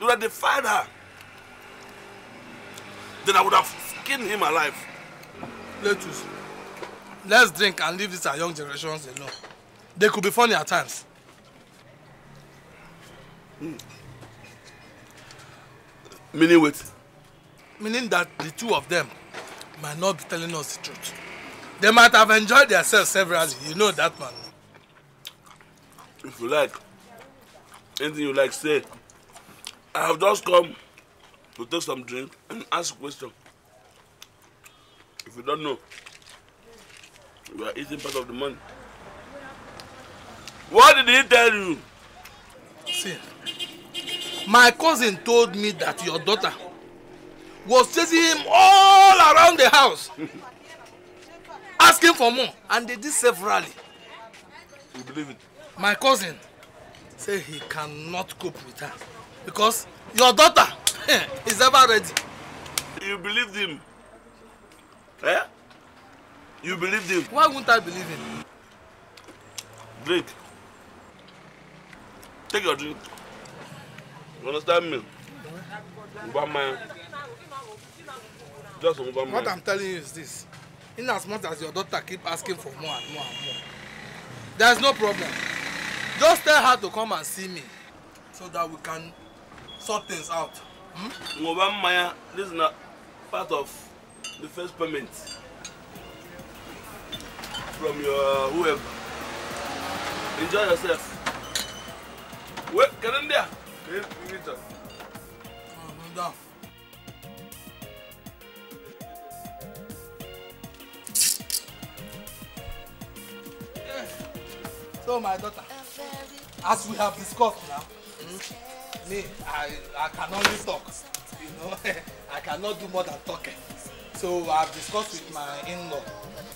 you would have defied her. Then I would have killed him alive. Let Let's let's drink and leave these our young generations alone. They could be funny at times. Mm. Meaning what? Meaning that the two of them might not be telling us the truth. They might have enjoyed themselves severally. You know that man. If you like, anything you like, say. I have just come to take some drink and ask question. If you don't know, you are eating part of the money. What did he tell you? See, my cousin told me that your daughter was chasing him all around the house, asking for more, and they did severally. You believe it? My cousin said he cannot cope with her because your daughter is ever ready. You believed him? Eh? You believed him? Why won't I believe him? Drink. Take your drink. You understand me? Obama. Just Obama. What I'm telling you is this. In as much as your daughter keep asking for more and more and more, there's no problem. Just tell her to come and see me so that we can sort things out. Ngoba hmm? Maya, this is not part of the first payment from your uh, whoever. Enjoy yourself. Wait, can in there? Can you meet us? I'm down. So my daughter, as we have discussed now, hmm? me i i can only talk you know i cannot do more than talking eh. so I've discussed with my in-law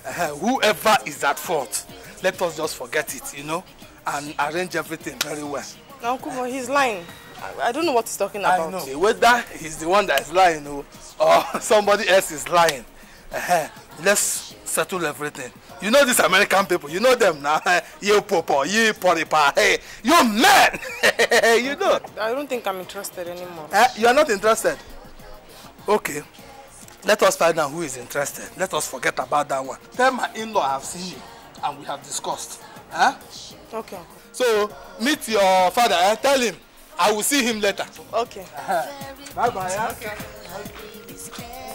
uh, whoever is at fault let us just forget it you know and arrange everything very well. na nkumo he is lying I, i don't know what he's talking about. i know whether he's the one that is lying o oh, or somebody else is lying uh, let's settle everything You know these American people. You know them now. you popo, you poripa, hey, you man. you know. I don't think I'm interested anymore. Uh, you are not interested. Okay. Let us find out who is interested. Let us forget about that one. Tell my in-law I have seen you and we have discussed. Huh? Eh? Okay. So meet your father. Eh? Tell him I will see him later. Okay. Bye bye. Yeah? Okay. okay.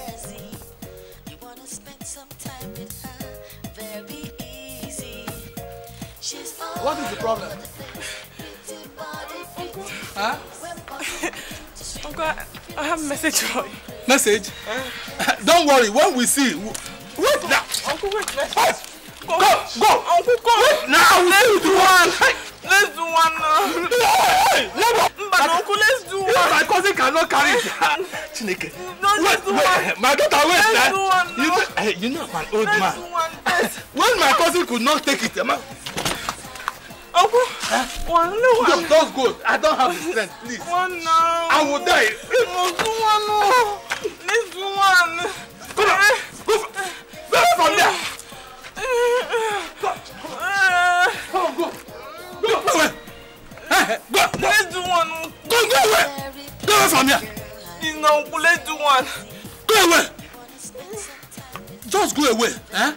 What is the problem? Uncle. Huh? Uncle, I, have a message for you. Message? Uh, Don't worry, when we see. Wait now. Uncle, wait. Let's wait. Go, go, go. Uncle, go. Wait now. Let's do, one. one. Let's do one now. Hey, hey, never. But like, Uncle, let's do one. My cousin cannot carry it. Chineke. No, let's do one. My daughter, wait. Let's eh? do one You know, hey, eh, you know I'm an old let's man. Do one. When my cousin could not take it, man. Opo, one no one. No, that's good. I don't have the strength, please. One now. I will die. You must do one more. This one. Come on, Go, go from there. Go. Eh, Come eh, on, go. Go, go away. Go, go. Let's do one. Go, go away. Go away from here. No, let's do one. Go away. Just go away. Eh?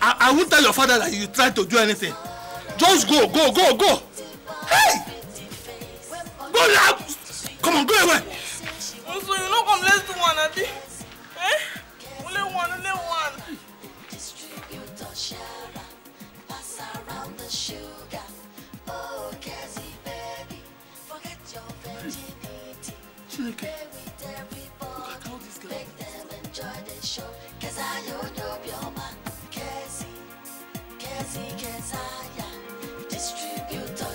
I, I won't tell your father that you tried to do anything. Just go, go, go, go. Hey! Go now! Come on, go away. so you know come let's do one, Adi? Eh? Only one, only one. Chineke, look at all these girls. Make them enjoy the show, cause I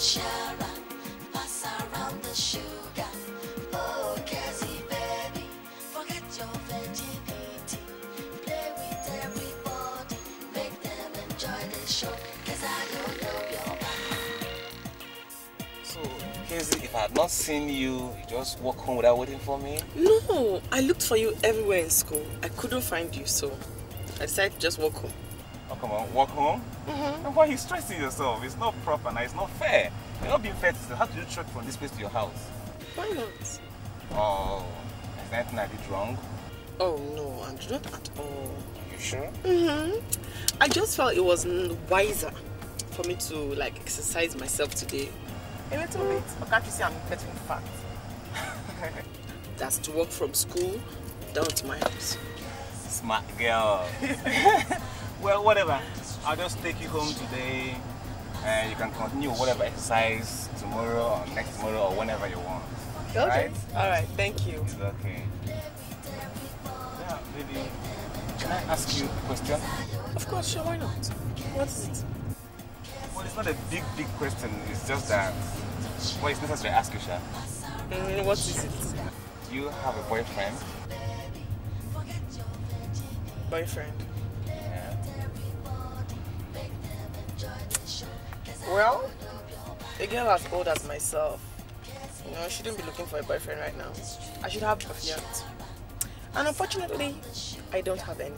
Sharon, pass around the sugar. Oh, baby, forget your Play with make them enjoy show. if I had not seen you, you just walk home without waiting for me? No, I looked for you everywhere in school. I couldn't find you, so I decided to just walk home. Oh, come on, walk home? Mm-hmm. And why are you stressing yourself? It's not proper now, it's not fair. You're not being fair to yourself. How do you trek from this place to your house? Why not? Oh, is anything I did wrong? Oh no, Andrew, not at all. you sure? Mm-hmm. I just felt it was wiser for me to like exercise myself today. A little bit, but can't you see I'm getting fat? That's to walk from school down to my house. Smart girl. well, whatever. I'll just take you home today and you can continue whatever exercise tomorrow or next tomorrow or whenever you want. Okay. All right. Thank you. It's okay. Yeah, baby. Can I ask you a question? Of course, sure. Why not? What is it? Well, it's not a big, big question. It's just that. Well, it's necessary to ask you, Sha. Mm, what is it? Do you have a boyfriend? Boyfriend. Well, a girl as old as myself, you know, shouldn't be looking for a boyfriend right now. I should have a fiance. And unfortunately, I don't have any.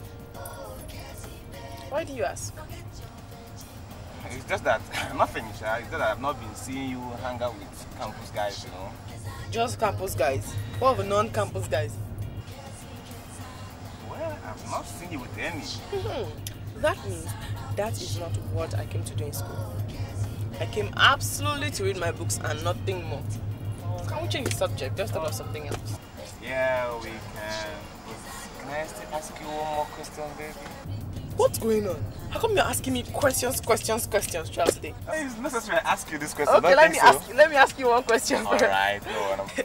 Why do you ask? It's just that nothing, sir. Ah. It's just that I've not been seeing you hang out with campus guys, you know. Just campus guys. What of non-campus guys? Well, I've not seen you with any. Hmm. That means that is not what I came to do in school. I came absolutely to read my books and nothing more. can we change the subject? Just about something else. Yeah, we can. Can I still ask you one more question, baby? What's going on? How come you're asking me questions, questions, questions, Charles Day? It's necessary I ask you this question. Okay, let me so. ask. You, let me ask you one question. All right, no,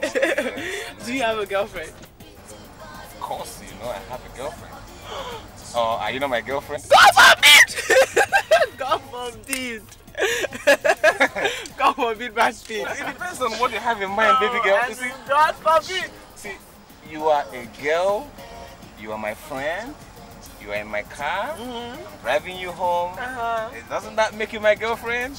Do you have a girlfriend? Of course, you know I have a girlfriend. Oh, are you not my girlfriend? God forbid! God forbid! God forbid bad speech. It depends on what you have in mind, baby girl. You see, God forbid. See, you are a girl, you are my friend, you are in my car, mm -hmm. I'm driving you home. Uh -huh. Doesn't that make you my girlfriend?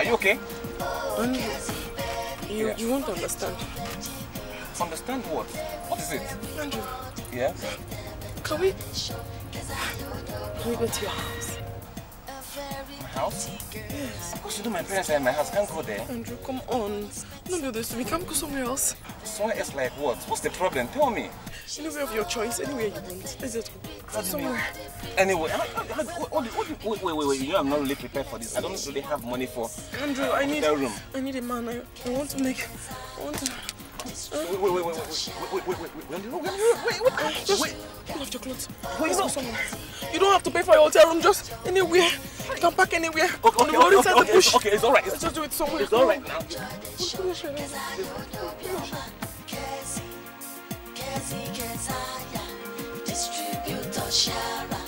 Are you okay? Um, you, you won't understand. Understand what? What is it? Andrew. Yes? Can we... Can we go to your house? My house? Yes. Of course you know my parents are in my house. can't go there. Andrew, come on. Don't do this to me. Can't go somewhere else. Somewhere else like what? What's the problem? Tell me. Anywhere of your choice. Anywhere you want. Is it? What somewhere. Anyway, I, I, I, wait, wait, wait, wait. You know I'm not really prepared for this. I don't really have money for Andrew, I need, room. I need a man. I, I want to make... I want to... Wait, wait, wait, wait, wait, wait, wait, wait, wait, wait, wait, wait, wait, your clothes. Wait, no. You don't have to pay for your hotel room, just anywhere. You can park anywhere. Okay, okay, on the road okay, okay, Okay, it's alright. Let's just do it somewhere. It's alright now. Distributor Shara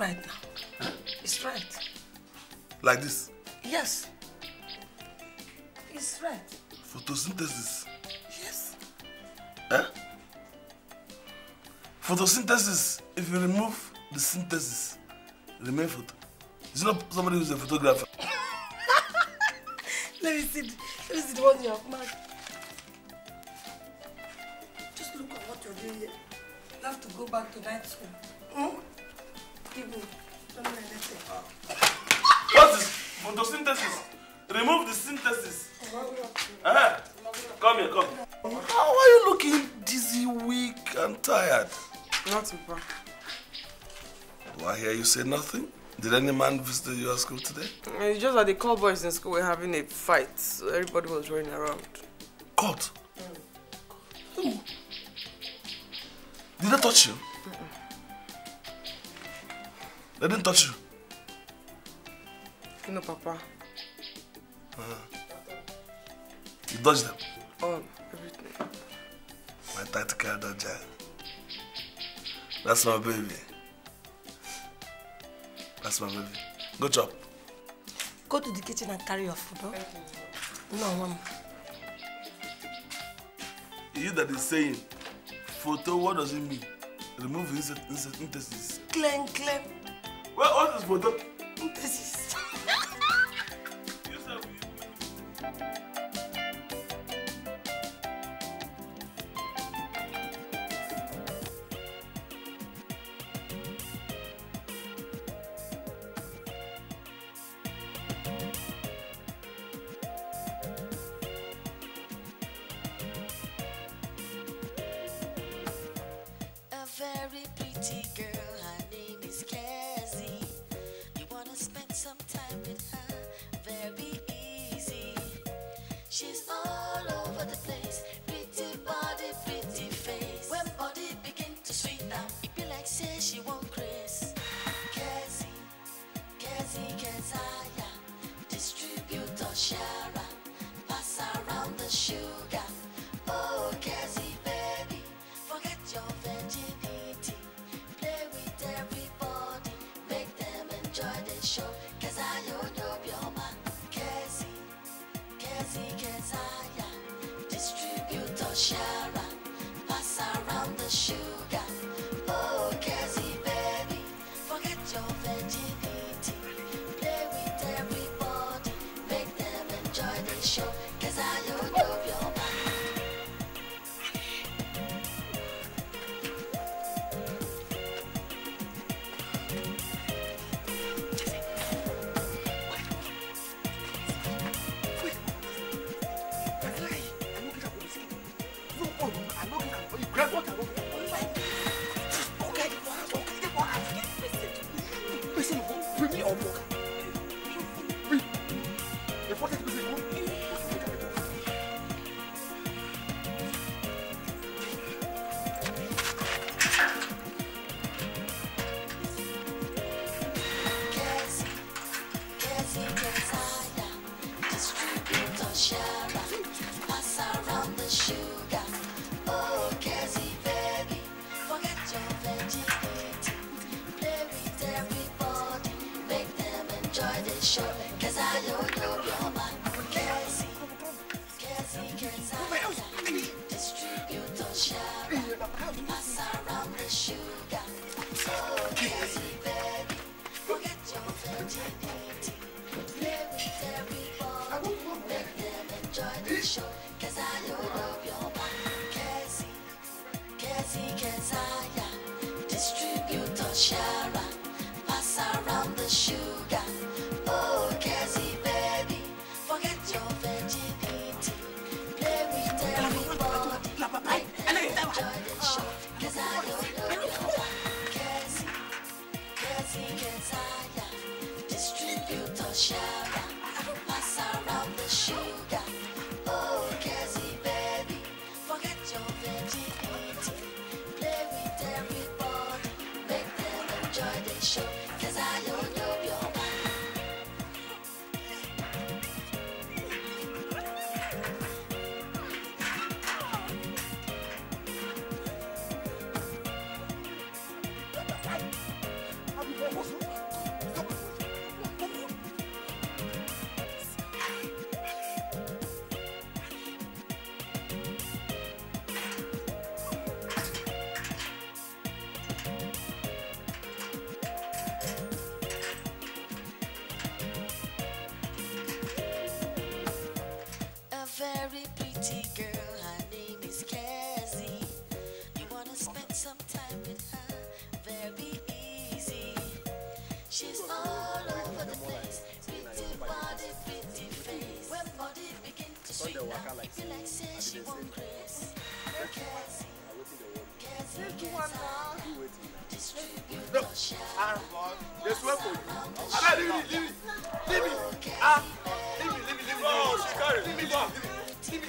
It's right now. Huh? It's right. Like this? Yes. It's right. Photosynthesis? Yes. Huh? Eh? Photosynthesis, if you remove the synthesis, remain photo. It's not somebody who's a photographer. Let me see. Let me see the one you have marked. Just look at what you're doing here. You have to go back to night school. Hmm? What is photosynthesis? Remove the synthesis. Uh -huh. Come here, come. How are you looking dizzy, weak, and tired? Nothing, bro. Do I hear you say nothing? Did any man visit your school today? Eh, it's just that the call boys in school were having a fight, so everybody was running around. Caught? Mm. Did I touch you? They didn't touch you. No, Papa. Uh -huh. You dodged them? Oh, everything. My tight carried that giant. That's my baby. That's my baby. good job, Go to the kitchen and carry your food, huh? No, Mom. You that is saying, photo, what does it mean? Remove his intestines. Clean, clean. Where, this photo? When body begin to sweet now, like you like say she will me grace. No cares. No, I'm wrong. There's one for you. i leave me, leaving it, leave me, Leave it. Ah, leave me, leave me, leave me. Oh, she got it. Leave me, leave me, Leave me.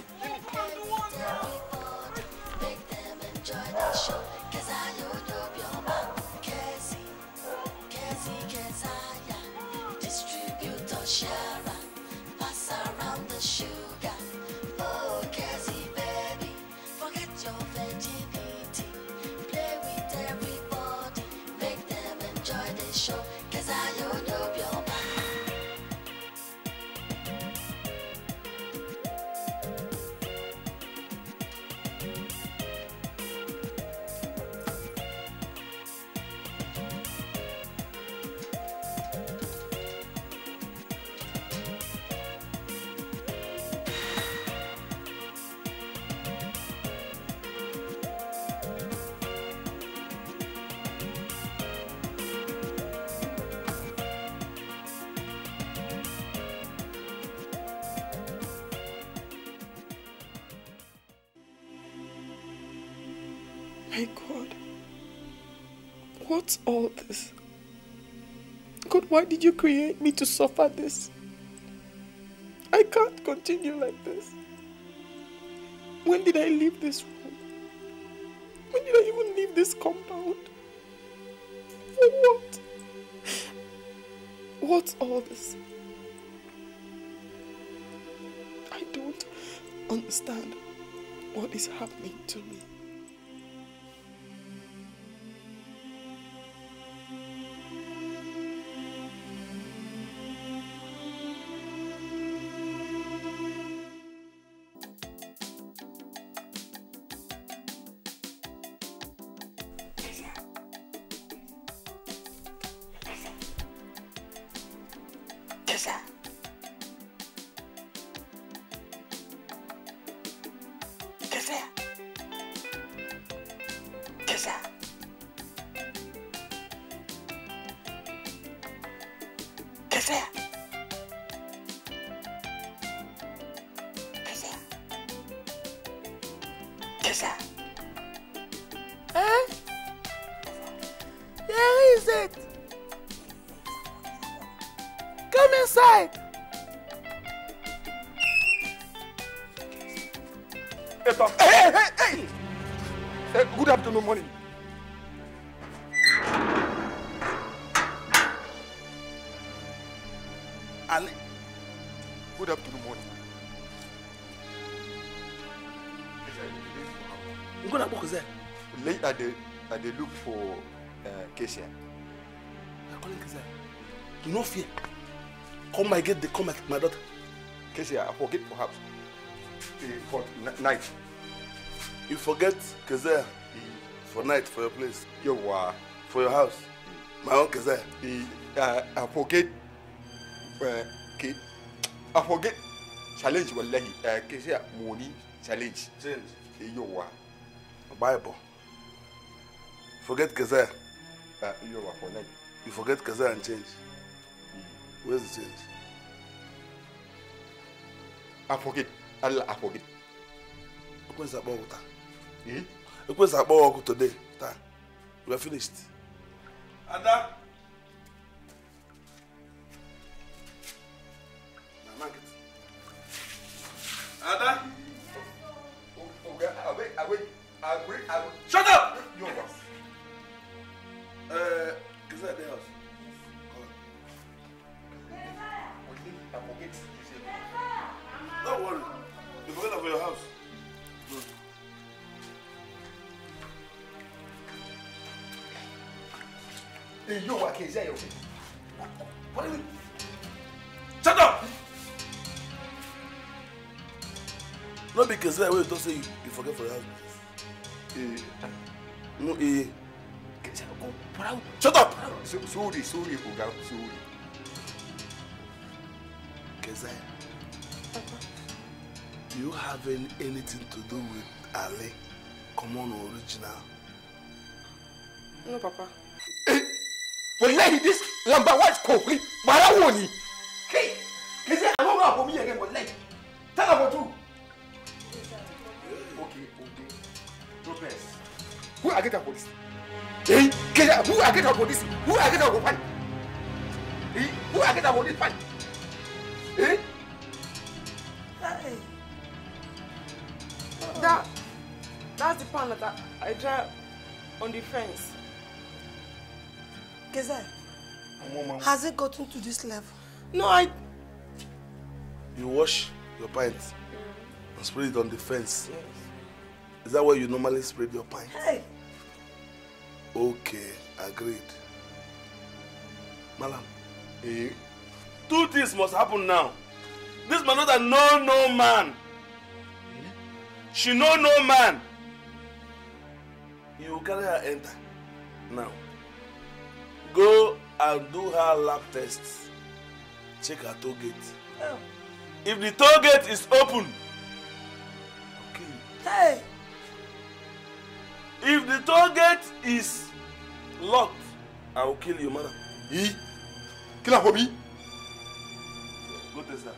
Why did you create me to suffer this? I can't continue like this. When did I leave this room? When did I even leave this compound? For what? What's all this? I don't understand what is happening to me. No fear. Come, I get the come, my daughter. Casey, I forget perhaps. For night. You forget Keziah for night, for your place. Your wa. For your house. My own Kazer. Keziah. Uh, I forget. Uh, I forget challenge wallahi. Uh, Kazer, money challenge. Challenge. Your wa. Bible. Forget Kazer. Uh, your wa for night. You forget Kazer and change. Where's the change? I forget. Allah, I forget. Ekwensu akpọ ọgụ taa. Hmm? Ekwensu akpọ ọgụ today taa. We are finished. see that way you talk say you, forget for your house. Eh. No eh. Shut up! sorry, sorry, Oga, sorry. Kezai, do you having anything to do with Ali? Come on, original? No, Papa. Eh, well, this number one is Kofi. But I want I get her police? Eh? Get who I get her police? Who I get her go Eh? Who I get her police Eh? Hey. That, that's the pan that I, I drive on the fence. Gazelle, has it gotten to this level? No, I... You wash your pants and spray it on the fence. Yes. Is that where you normally spray your pants? Hey! Okay, agreed. Malam. Eh? Two things must happen now. This man not a no man. Eh? She know no man. You carry her enter. Now. Go and do her lab test. Check her toll gate. Oh. If the toll gate is open. Okay. Hey. If the toll gate is locked, I will kill you, madam. He? Kill her for me? What is that?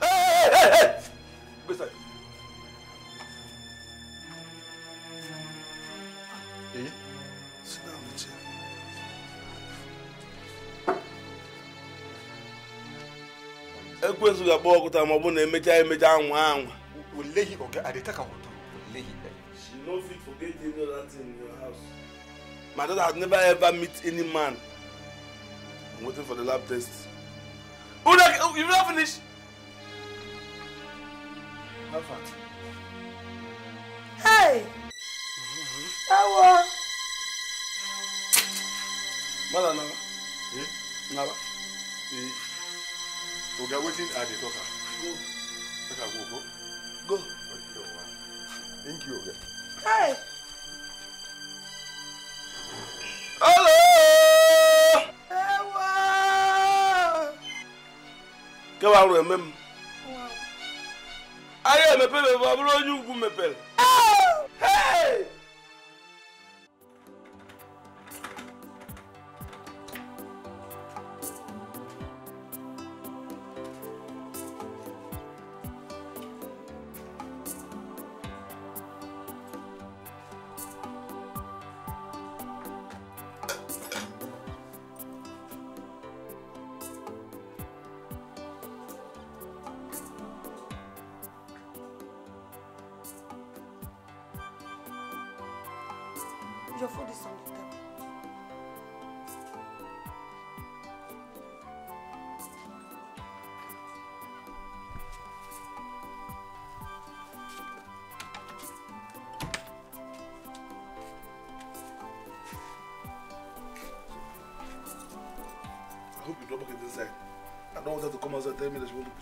Hey, hey, hey, Go ọkụta ma ọ bụ na emechaa emecha anwa anwa. Oleghị ọga adịta ka no fit forget any other thing in your house. My daughter has never ever met any man. I'm waiting for the lab test. Oh, you've not finished? How far? Hey! Awa! Mother Naba. Eh? Hmm? Naba. Eh? Oga, waiting at the talker. Go. Talker, go, go. Go. Thank you, Okay. Hello. Ẹ wá. Kẹ́ wàá rọ̀ ẹ̀mẹ́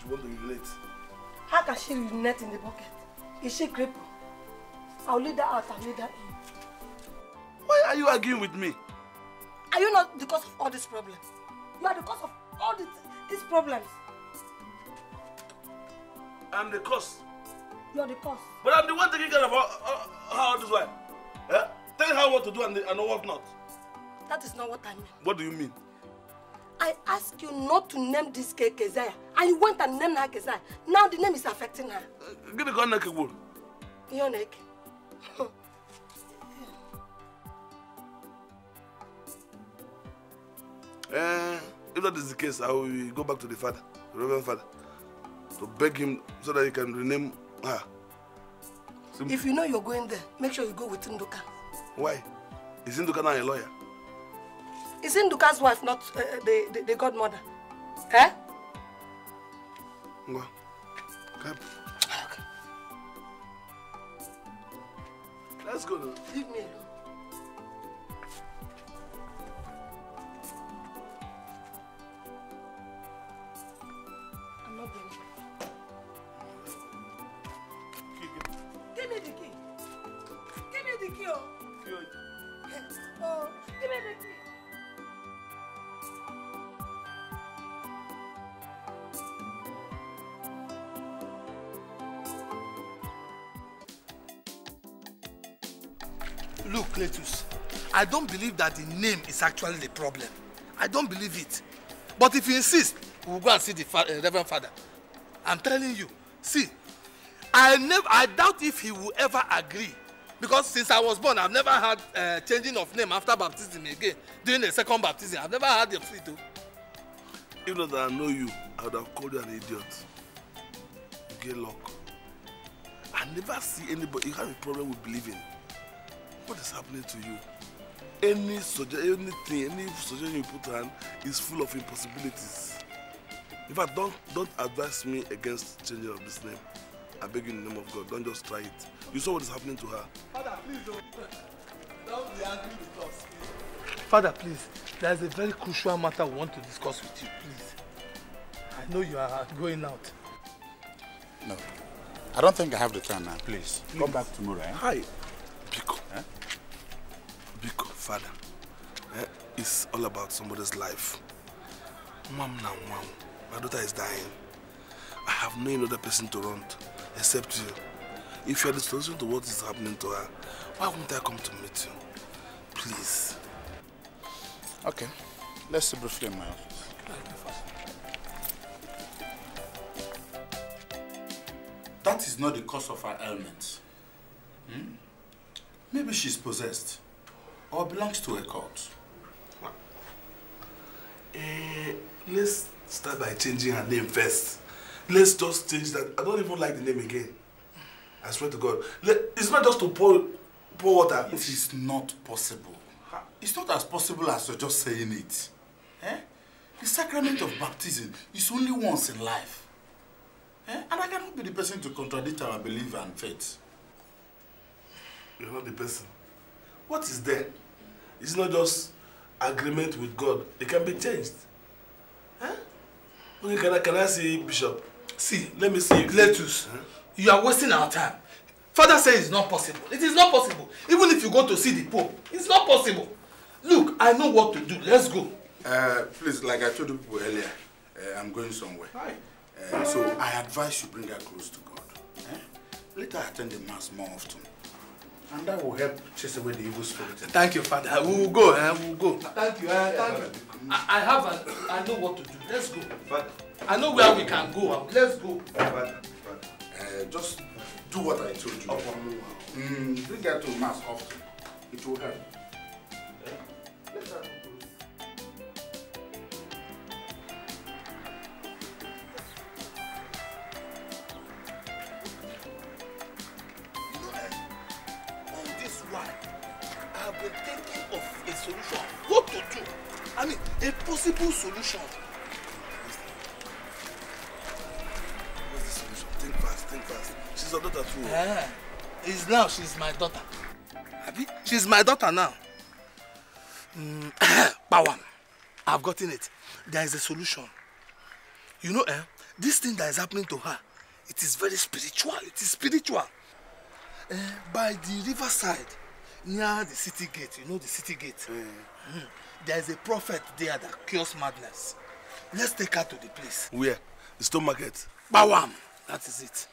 you want to urinate. How can she relate in the bucket? Is she crippled? I'll lead her out, I'll lead her in. Why are you arguing with me? Are you not the cause of all these problems? You are the cause of all these, these problems. I'm the cause. You're the cause. But I'm the one taking care of all, all, this wife. Yeah. Tell her what to do and, the, and what not. That is not what I mean. What do you mean? I asked you not to name this cake Keziah, and you went and named her Keziah. Now the name is affecting her. Uh, give me gun neck, Igbo. Your neck? Uh, if that is the case, I will go back to the father, the Reverend Father, to beg him so that he can rename her. Simply. If you know you're going there, make sure you go with Nduka. Why? Is Nduka now a lawyer? Is Induka's wife not uh, the, the, the godmother? Eh? Ngwa. Cap. Okay. Let's go. Leave me alone. I don't believe that the name is actually the problem. I don't believe it. But if you insist, we'll go and see the fa uh, Reverend Father. I'm telling you. See, I never, I doubt if he will ever agree. Because since I was born, I've never had uh, changing of name after baptism again. During the second baptism, I've never had the free to. If not I know you, I would have called you an idiot. You get luck. I never see anybody. You have a problem with believing. What is happening to you? any suggestion, anything, any suggestion you put on is full of impossibilities. In fact, don't, don't advise me against changing of this name. I beg you in the name of God, don't just try it. You saw what is happening to her. Father, please don't, don't be angry with us. Father, please, there is a very crucial matter we want to discuss with you, please. I know you are going out. No. I don't think I have the time now. Please, please. come back tomorrow. Eh? Hi. Pico. Eh? father. Eh? It's all about somebody's life. Mom now, mom. My daughter is dying. I have no other person to run to except you. If you are the solution to what is happening to her, why won't I come to meet you? Please. Okay. Let's see briefly in my office. That is not the cause of her ailment. Hmm? Maybe she's possessed. or belongs to a cult. uh, eh, let's start by changing her name first. Let's just change that. I don't even like the name again. I swear to God. Let, it's not just to pour, pour water. It is not possible. It's not as possible as you're just saying it. Eh? The sacrament of baptism is only once in life. Eh? And I cannot be the person to contradict our belief and faith. You're not the person. What is there? It's not just agreement with God. It can be changed. Huh? can I, can I see Bishop? See, let me see. Lettuce, huh? you are wasting our time. Father says it's not possible. It is not possible. Even if you go to see the Pope, it's not possible. Look, I know what to do. Let's go. Uh, please, like I told people earlier, uh, I'm going somewhere. Hi. Uh, so I advise you bring her close to God. Eh? Let her attend the mass more often. And that will help chase away the evil spirit. Thank you, Father. We will go. Eh? We will go. Thank you. Eh? Thank you. I, I have. A, I know what to do. Let's go. Father. I know where we can go. Let's go. Father, Uh, just do what I told you. Okay. Mm, bring her to mass often. It will help. Yeah. Let's go. solution? What's the solution? Think fast, think fast. She's your daughter too. Yeah. It's now she's my daughter. Abi? She's my daughter now. Mm, Power. I've gotten it. There is a solution. You know, eh? This thing that is happening to her, it is very spiritual. It is spiritual. Eh, by the riverside, near the city gate, you know the city gate. Mm. Mm there is a prophet there that cures madness. Let's take her to the place. Where? The stone market. Bawam! That is it.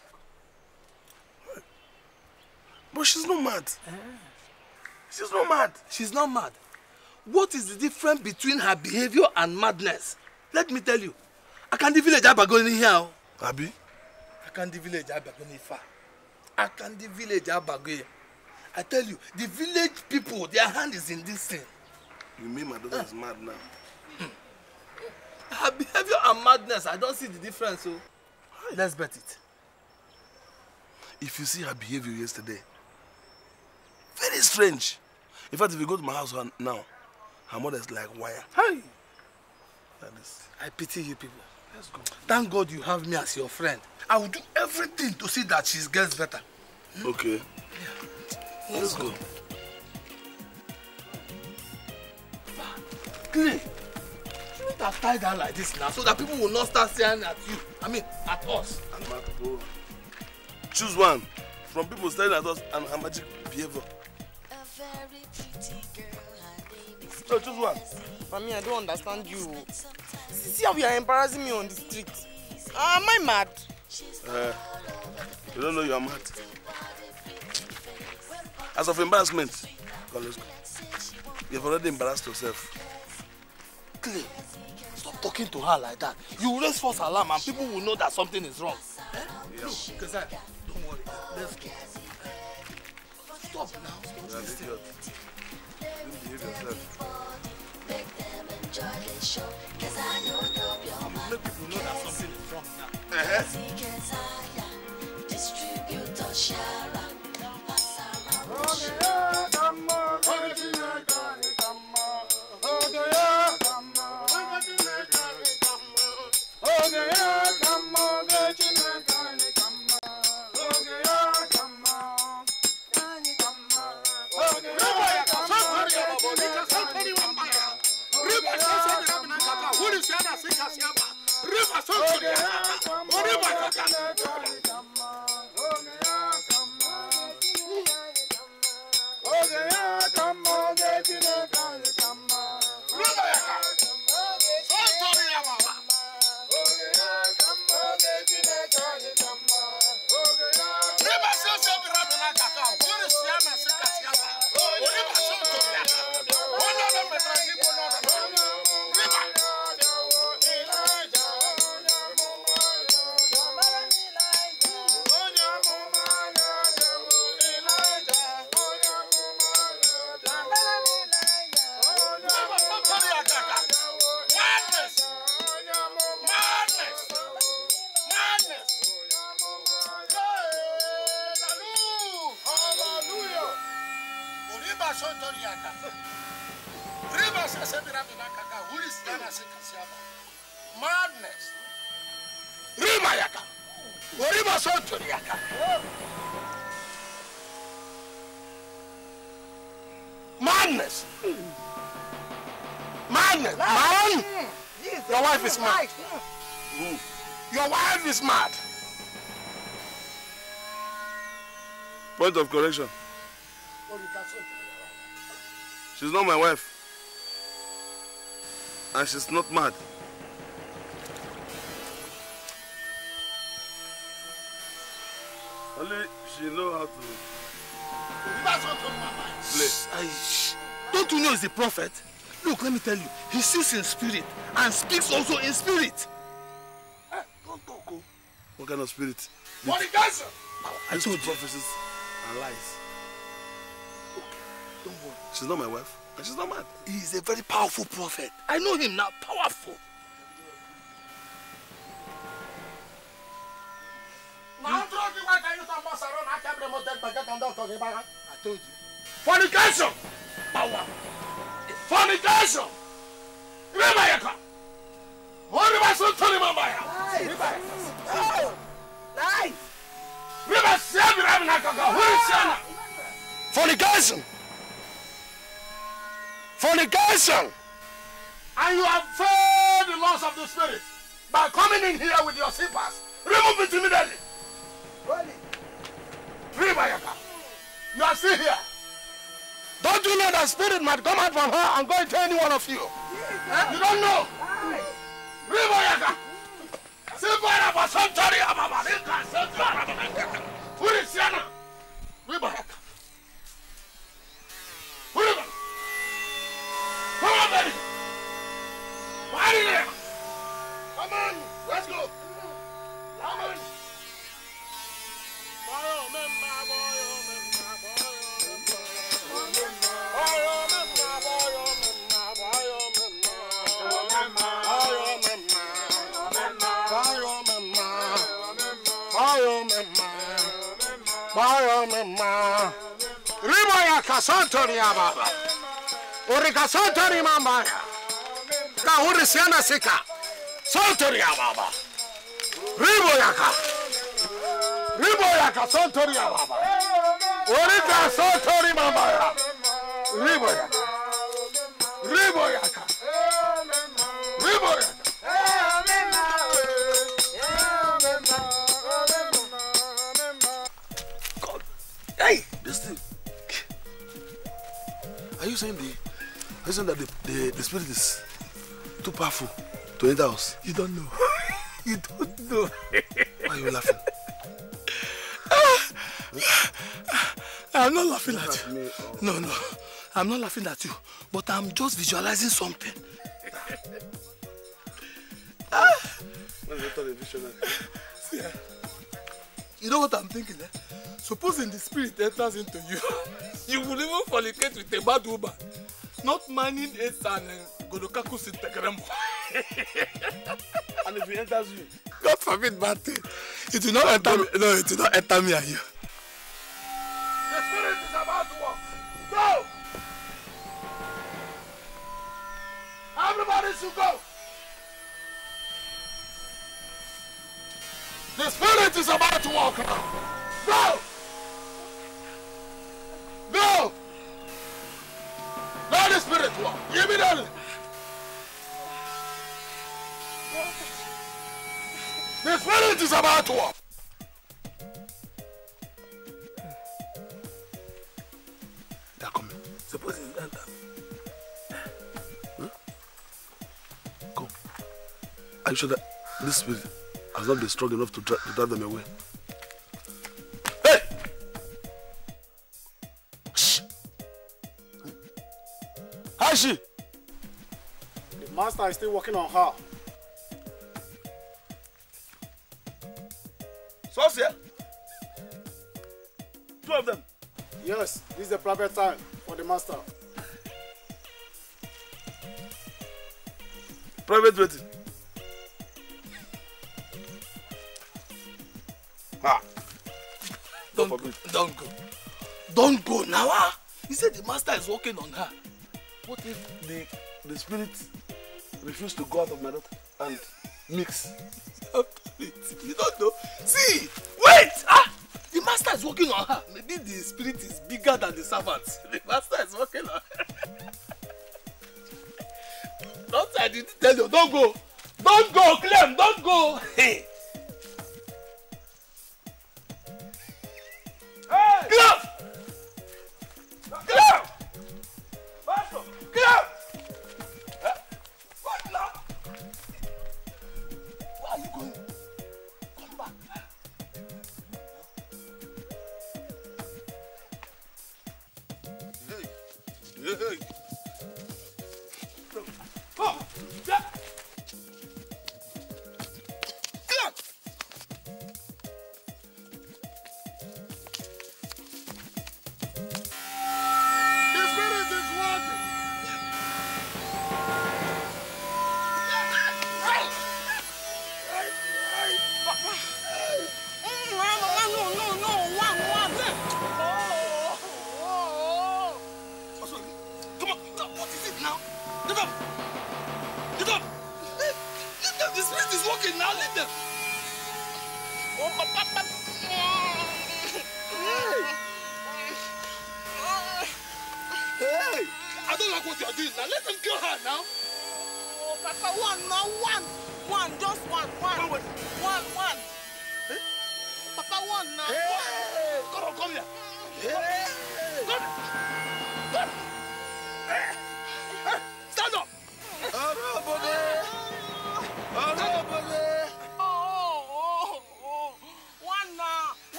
But she's not mad. Eh. She's not mad. She's not mad. What is the difference between her behavior and madness? Let me tell you. I can't the village Abagoni here. Oh. Abi? I can't the village Abagoni far. I can't the village Abagoni. I tell you, the village people, their hand is in this thing. You mean my daughter is mad now? Her behavior and madness, I don't see the difference. So oh. let's bet it. If you see her behavior yesterday, very strange. In fact, if you go to my house now, her mother is like wire. Hi. That is. I pity you people. Let's go. Thank God you have me as your friend. I will do everything to see that she gets better. Okay. Yeah. Let's, Let's go. go. Exactly. You should have tied down like this now so that people will not start staring at you. I mean, at us. And my Choose one from people staring at us and her magic behavior. A very pretty girl, her name is so choose one. Mami, I don't understand you. See how you are embarrassing me on the street. Ah, am I mad? Uh, you don't know you are mad. As of embarrassment, God, let's go. You've already embarrassed yourself. Stop talking to her like that. You raise false alarm and people will know that something is wrong. Eh? Yeah. don't worry. Let's go. Stop now. Stop yeah, people know that something is wrong now. Uh -huh. Point of correction. She's not my wife. And she's not mad. Only she knows how to play. I, don't you know he's a prophet? Look, let me tell you, he sees in spirit and speaks also in spirit. What kind of spirit? What does. I told you. and lies. Okay, don't worry. She's not my wife, and she's not mad. is a very powerful prophet. I know him now, powerful. I told you. Fornication! Fornication! Fornication! Fornication! And you have failed the laws of the Spirit by coming in here with your slippers. Remove it immediately. your car. You are still here. Don't you know that spirit might come out from her and go into any one of you? you don't know. Ribayaka. Sibara basantari ababa. Sibara basantari ababa. Furisiana. santori yaba urika santori mambaya kahuri siana sika santori yaba ribo yaka ribo yaka santori yaba urika santori mambaya ribo yaka ribo yaka saying the reason that the, the, the spirit is too powerful to enter us. You don't know. you don't know. Why are you laughing? Ah, I'm not laughing at, at you. Oh. No, no. I'm not laughing at you. But I'm just visualizing something. ah. You know what I'm thinking, eh? Supposing the spirit enters into you, you will even fornicate with a bad woman, not mining it and uh, Godokakus in and if it enters you, God forbid bad It will not enter me. No, it will not enter me The spirit is about to walk. Go! Everybody go! spirit is about Go! spiritual. Immediately. The spirit is about to walk. Suppose not uh, uh, hmm? Come. Are you sure that this spirit has not been strong enough to drive them away? she? The master is still working on her. So, sir? Two of them? Yes, this is the private time for the master. Private wedding? Ah. Don't, don't go. Don't go. Don't go now. He ah. said the master is working on her. What if the, the spirit refused to go out of my daughter and mix? you don't know. See, wait! Ah! The master is working on her. Maybe the spirit is bigger than the servant. The master is working on her. don't I didn't tell you, don't go. Don't go, Clem, don't go. Hey.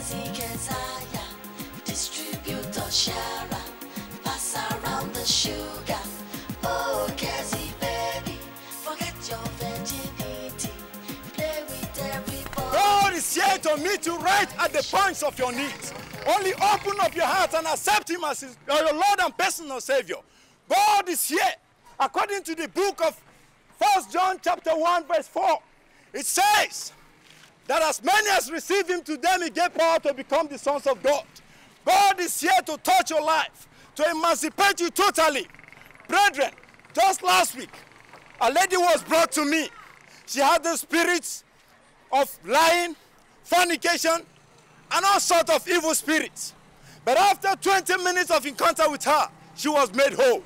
Oh, God is here to meet you right at the points of your needs. Only open up your heart and accept Him as uh, your Lord and personal Savior. God is here, according to the book of First John chapter 1 verse 4. It says, that as many as receive him to them he gave power to become the sons of God. God is here to touch your life, to emancipate you totally. Brethren, just last week, a lady was brought to me. She had the spirits of lying, fornication, and all sort of evil spirits. But after 20 minutes of encounter with her, she was made whole.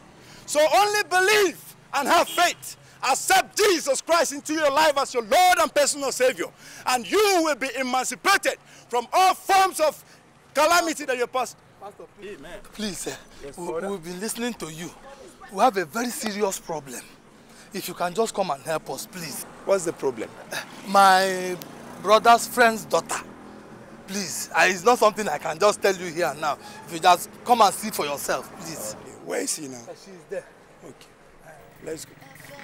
So only believe and have faith Accept Jesus Christ into your life as your Lord and personal Savior, and you will be emancipated from all forms of calamity that you pass. Pastor, please, Amen. please uh, yes, we, we've been listening to you. We have a very serious problem. If you can just come and help us, please. What's the problem? my brother's friend's daughter. Please, it's not something I can just tell you here and now. If you just come and see for yourself, please. Okay. Where is she now? Uh, she's there. Okay, let's go.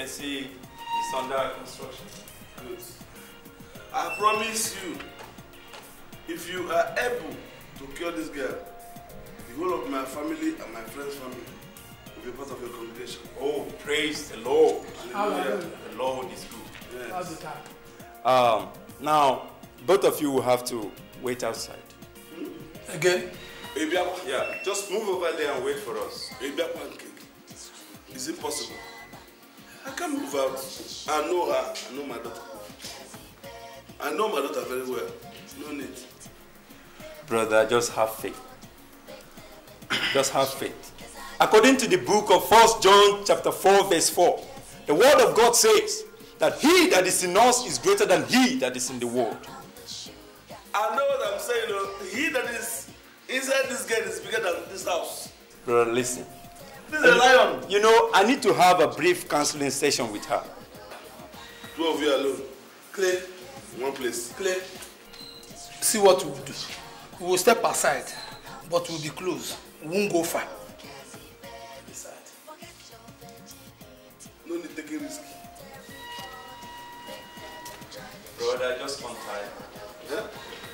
can see it's under construction. Good. I promise you, if you are able to cure this girl, the whole of my family and my friend's family will be part of your congregation. Oh, praise the Lord. Hallelujah. The Lord is good. Yes. Um, now, both of you will have to wait outside. Hmm? Again? Yeah, just move over there and wait for us. Is it possible? I can't move out. I know her. I know my daughter. I know my daughter very well. No need. Brother, just have faith. Just have faith. According to the book of 1 John chapter 4, verse 4, the word of God says that he that is in us is greater than he that is in the world. I know what I'm saying. he that is inside this gate is bigger than this house. Brother, listen. This is a lion. You know, I need to have a brief counseling session with her. Two of you alone. Clear. one place. Clear. See what we'll do. We will step aside, but we'll be close. We won't go far. No need taking risk. Brother, just on time. Yeah?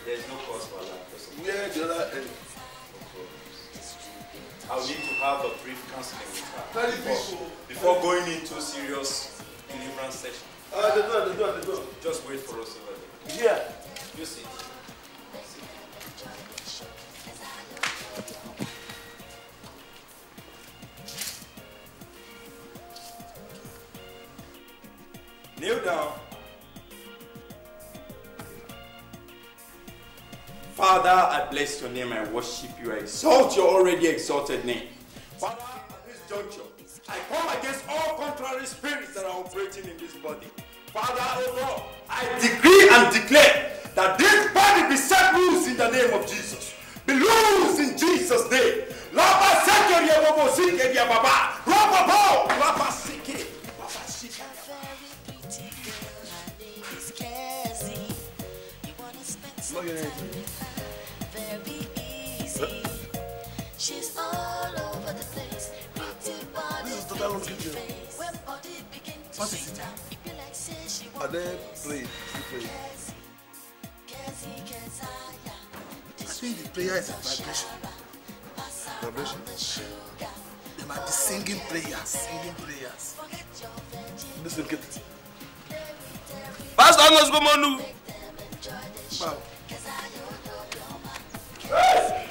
There's no cause for that. Yeah, the other end? I'll need to have a brief counseling with her before, before going into serious deliverance session. Uh, the door, the door, the door. Just wait for us over there. Yeah. You see. Kneel down. Father, I bless your name. I worship you. I exalt your already exalted name. Father, at this juncture, I come against all contrary spirits that are operating in this body. Father, oh Lord, I decree and declare that this body be set loose in the name of Jesus. Be loose in Jesus' name. Lapa Lapa Lapa She's all over the place. Pretty body, this is total pretty face. When body begin to what shake down, it be like say she won't Are they playing? Play. I think the prayer is a vibration. Vibration? They might be singing prayers, singing prayers. This will get it. Pastor Ngos Gomonu! Wow. Yes!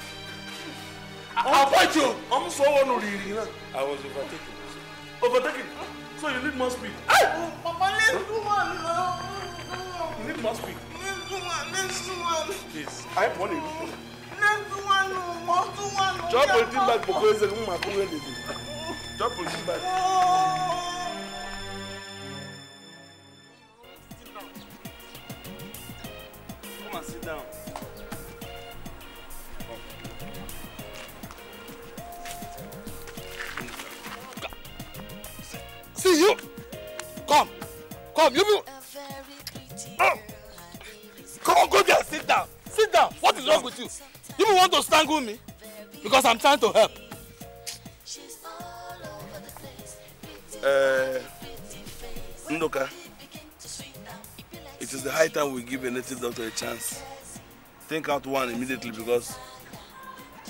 appoint you. ọmọ sọ wọn nù náà. I was overtaken. Overtaken? So you need more speed. Oh, Papa, let's do one now. You need more speed. Let's do one. Let's do Please, I am warning you. Let's do one. Let's do one. Drop everything back because it's a woman who will do. Drop everything back. Oh. Come on, sit down. See you. Come. Come, you people. Oh. Come on, go there. Sit down. Sit down. What is wrong with you? You want to strangle me? Because I'm trying to help. Uh, Ndoka, it is the high time we give a native doctor a chance. Think out one immediately because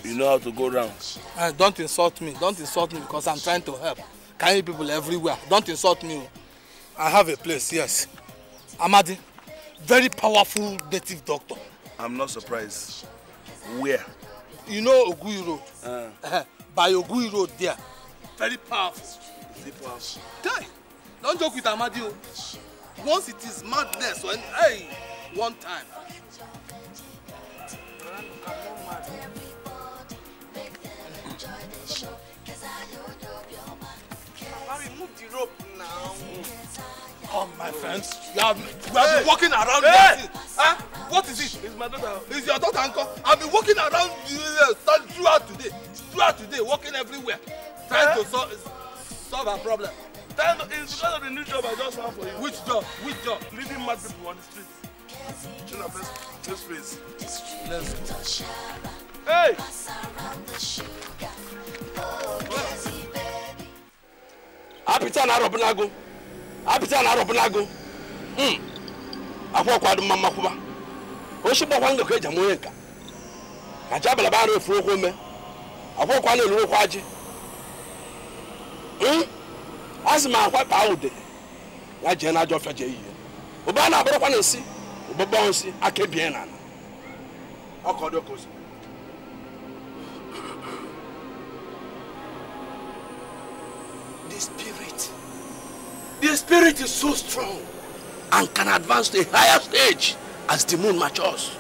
you know how to go round. Uh, don't insult me. Don't insult me because I'm trying to help carrying people everywhere don't insult me o. i have a place yes. amadi very powerful native doctor. i'm not surprised where. you know ogui road. Uh. Uh-huh. by ogui road there very powerful. is it powerful. guy don joke with amadi o oh. once it is madness when hey one time. Man, come, oh, my friends. You have, you have hey. been walking around hey. here. Huh? What is it? It's my daughter. It's your daughter, uncle. I've been walking around uh, throughout today. Throughout today, walking everywhere. Trying huh? to solve, solve her problem. Trying to, it's because of the new job I just found for you. Which job? Which job? Leading mad people on the street. Children, let's face. Let's go. Hey! Apita na Robinago. apịta na arụbụnago hmm. akwa ọkwa dị mma mmakwụba ochi gbakwa ngakọ eji ama onye nka ka ji abalaba arụ efuru okwu ome akwụkwọ ọkwa na-eluru okwu ajị hmm. a sị m akwa kpaa ude ya jee na ajọ ọfịa jee ihe ụba na-abụrụkwa na nsị ụgbọgbọ nsị aka ebie na ala ọkọ dị oke The spirit is so strong and can advance to a higher stage as the moon matures.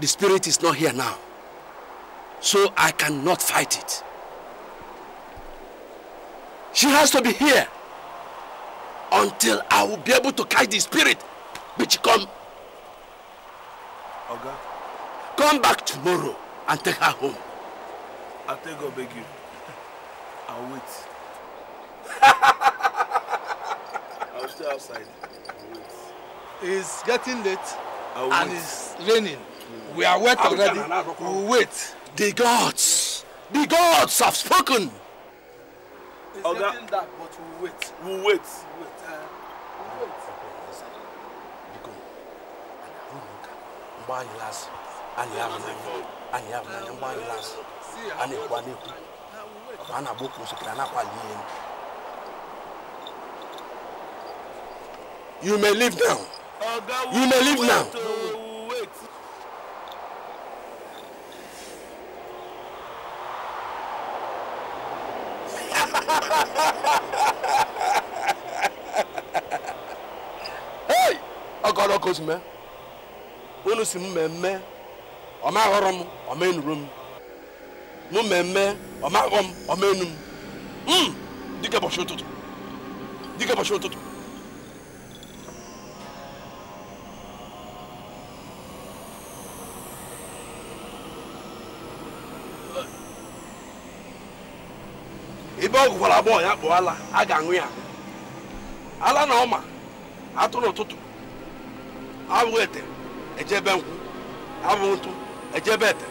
The spirit is not here now, so I cannot fight it. She has to be here until I will be able to catch the spirit which come. Oga? Come back tomorrow and take her home. I'll I'll beg you. I'll wait. I'll stay outside. I'll wait. It's getting late I'll and wait. it's raining. Mm. We are wet I'll already. We'll wait. The gods, the gods have spoken. It's getting dark, but we'll wait. We'll wait. We'll wait. Uh, we'll wait. ọ a na-agba oke osikiri na-akwali ihe you may leave now you may leave now hey ọkọrọ ka otu mee unu si m mmemme ọ ma aghọrọ m ọ ma enuru m mụ mmemme ọmaghọ m ọmaenu m hmm, dịka ụbọchị ụtụtụ dịka ụbọchị ụtụtụ ebe ọ gụkwara agbọghọ ya kpọọ ala a ga-aṅụ ya ala na ọma atụ n'ụtụtụ abụghị ete ejebe nkwụ abụghị ntụ ejebe ete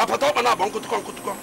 apa tau mana bang kutukong kutukong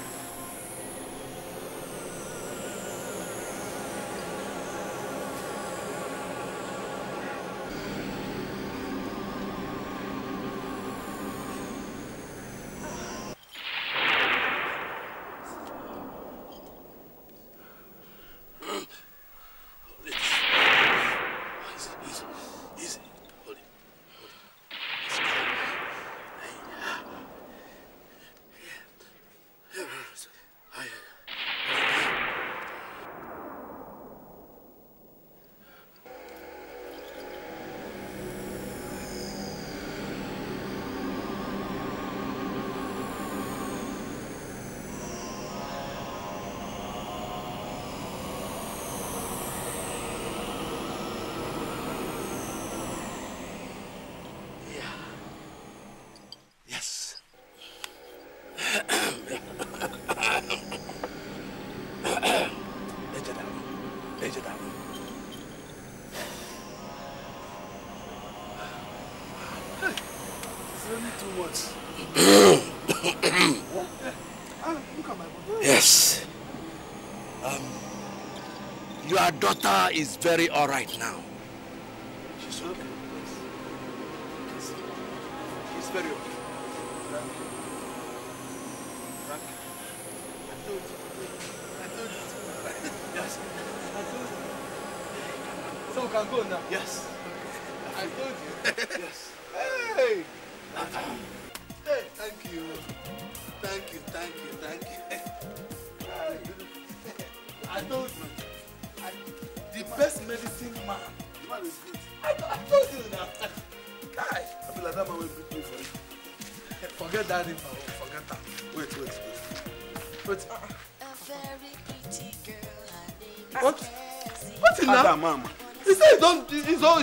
daughter is very all right now.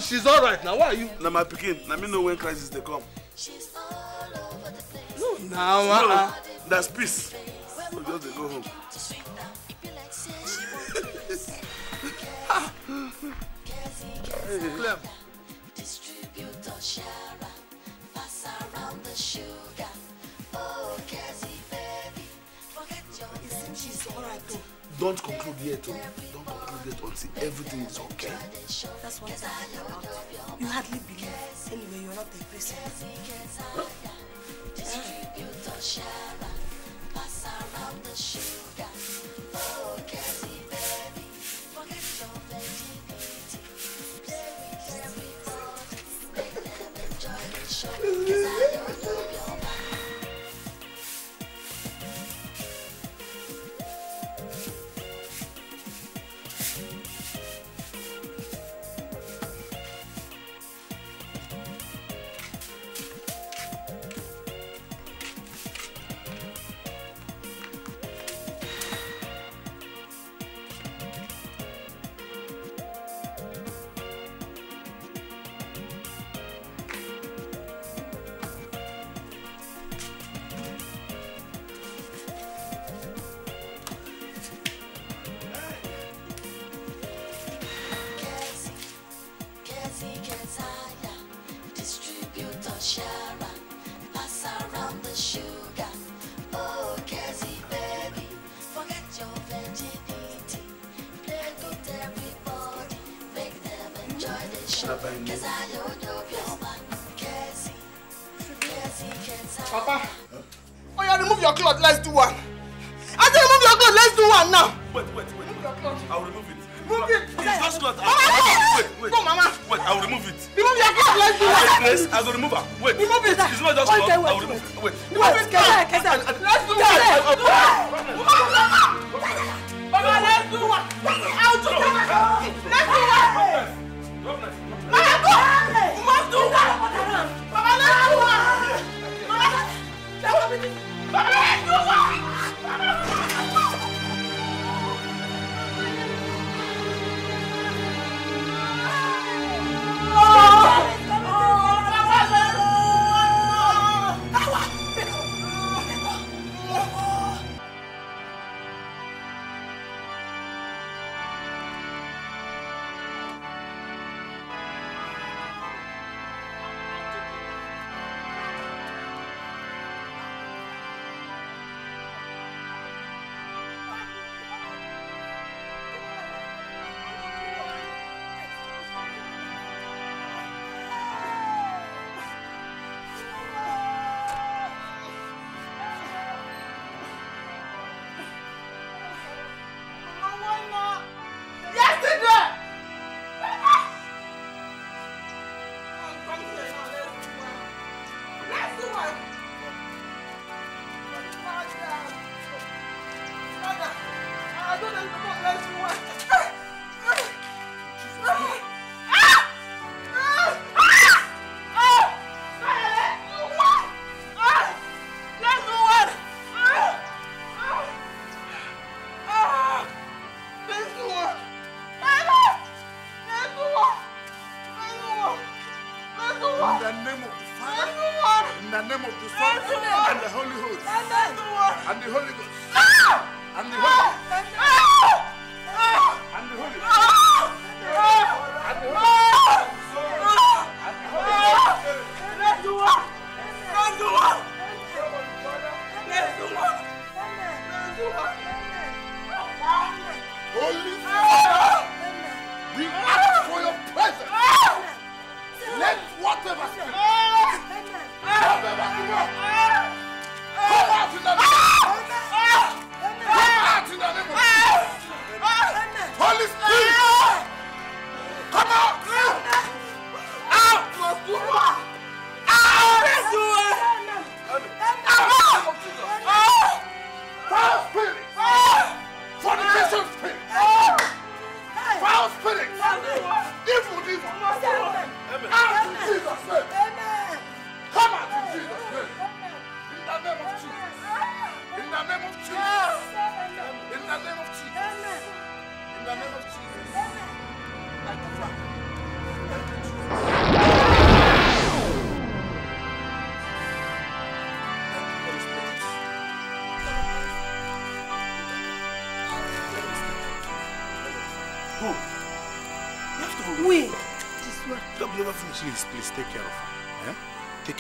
she's all right now why are you. na my pikin na me know when crisis dey come. no na wa. no uh, peace so just dey go home. hey. Clem. Don't conclude yet. Oh. Don't conclude yet until everything is okay just want to you hardly believe. Anyway, you're not a Christian. Distribute the Shara, pass around the sugar. Oh, Kezzy, baby, forget your virginity. Play good, everybody, make them enjoy the show. Cause I don't know your man, Kezzy. Kezzy, Kezzy. Papa, oh yeah, remove your cloth, let's do one. I said remove your cloth, let's do one now. Wait, wait, wait. Remove your cloth. I'll remove it. Move it. It's not cloth. Mama, wait, wait. No, Mama. Wait, I'll remove it. Remove your cloth, let's do one. Yes, I'll remove her.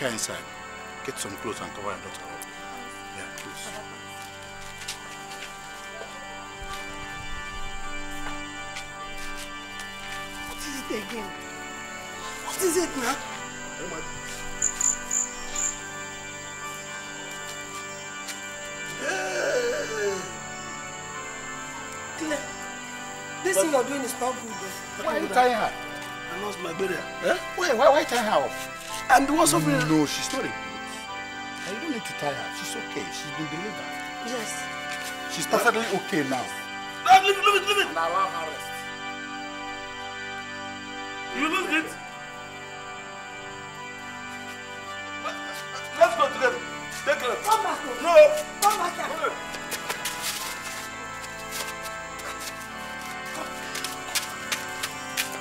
her inside. Get some clothes and cover her daughter up. Yeah, please. What is it again? What is it now? Oh, hey. this thing you're doing is not good. Why are you tying her? I lost my brother. Huh? Wait, why, why tying her off? And the one suffering No, she's not a ghost. you don't need to tie her. She's okay. She's been delivered. Yes. She's perfectly okay now. No, leave it, leave it, leave it. And allow her rest. You lose it. Let's go together. Take her. Come back. No. Come back Come here.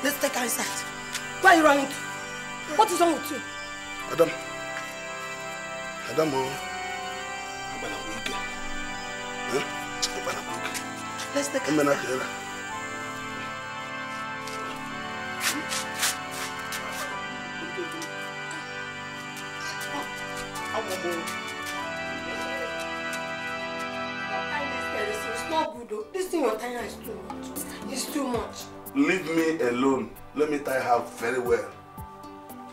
Let's take her inside. Why are you running? What is wrong with you? Adamu Adamu agbala ko ike agbala ko ike ẹmẹ na kẹrẹ la. This thing you're tying is too much. It's too much. Leave me alone. Let me tie her very well.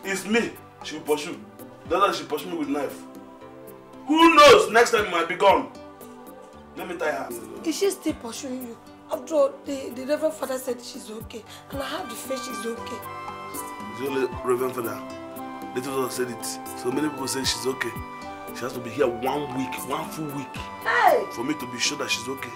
It's me she will pursue that's why she pursue me with knife who knows next time you might be gone let me tie her. is she still pursuing you after all the the reverend father said she's okay and i have the faith she's okay. the only reverend father little daughter said it so many people say she's okay she has to be here one week one full week hey. for me to be sure that she's okay.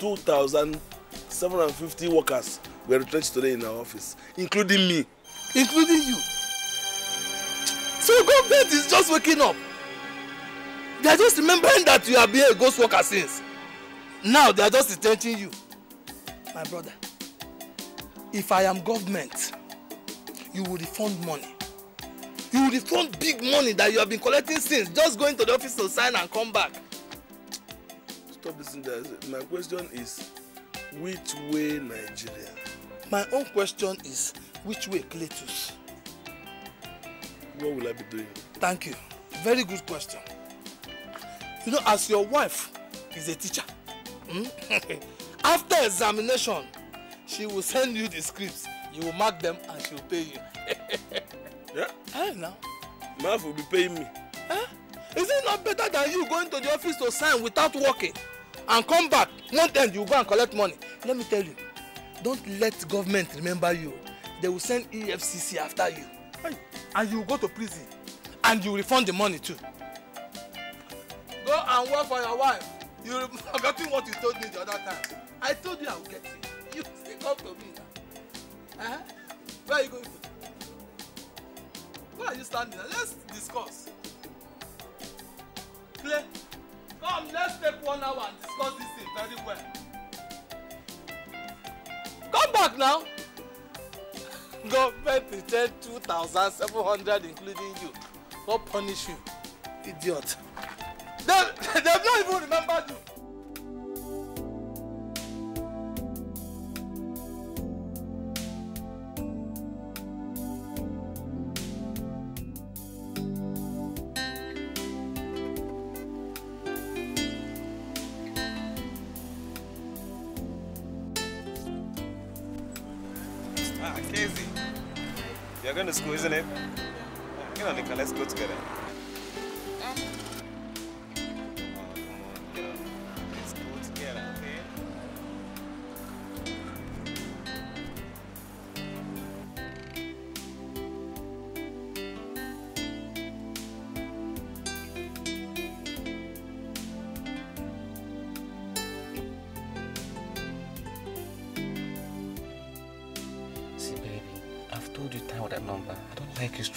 2,750 workers were retrenched today in our office, including me. Including you? So government is just waking up. They are just remembering that you have been a ghost worker since. Now they are just retrenching you. My brother, if I am government, you will refund money. You will refund big money that you have been collecting since, just going to the office to sign and come back stop this thing My question is, which way Nigeria? My own question is, which way Cletus? What will I be doing? Thank you. Very good question. You know, as your wife is a teacher, hmm? after examination, she will send you the scripts. You will mark them and she will pay you. yeah? I know. My wife will be paying me. Huh? Is it not better than you going to the office to sign without working? and come back one end you go and collect money let me tell you don't let government remember you they will send efcc after you and you go to prison and you refund the money too go and work for your wife you forgetting what you told me the other time i told you i will get you you still come to me now eh where you go where are you standing now let's discuss Clear. Come, let's take one hour and discuss this thing very well. Come back now. Government returned 2,700 including you. What punish you? Idiot. They, they've not even remembered you. isn't it?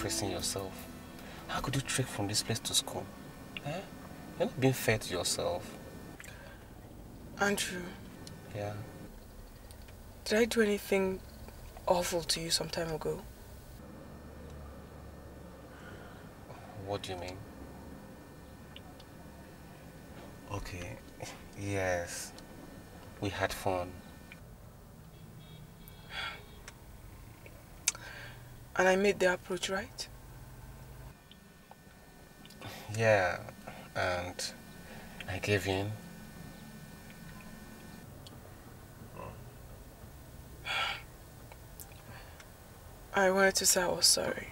stressing yourself? How could you trek from this place to school? Eh? You're not being fair to yourself. Andrew. Yeah? Did I do anything awful to you some time ago? What do you mean? Okay, yes. We had fun. And I made the approach, right? Yeah, and I gave in. I wanted to say I was sorry.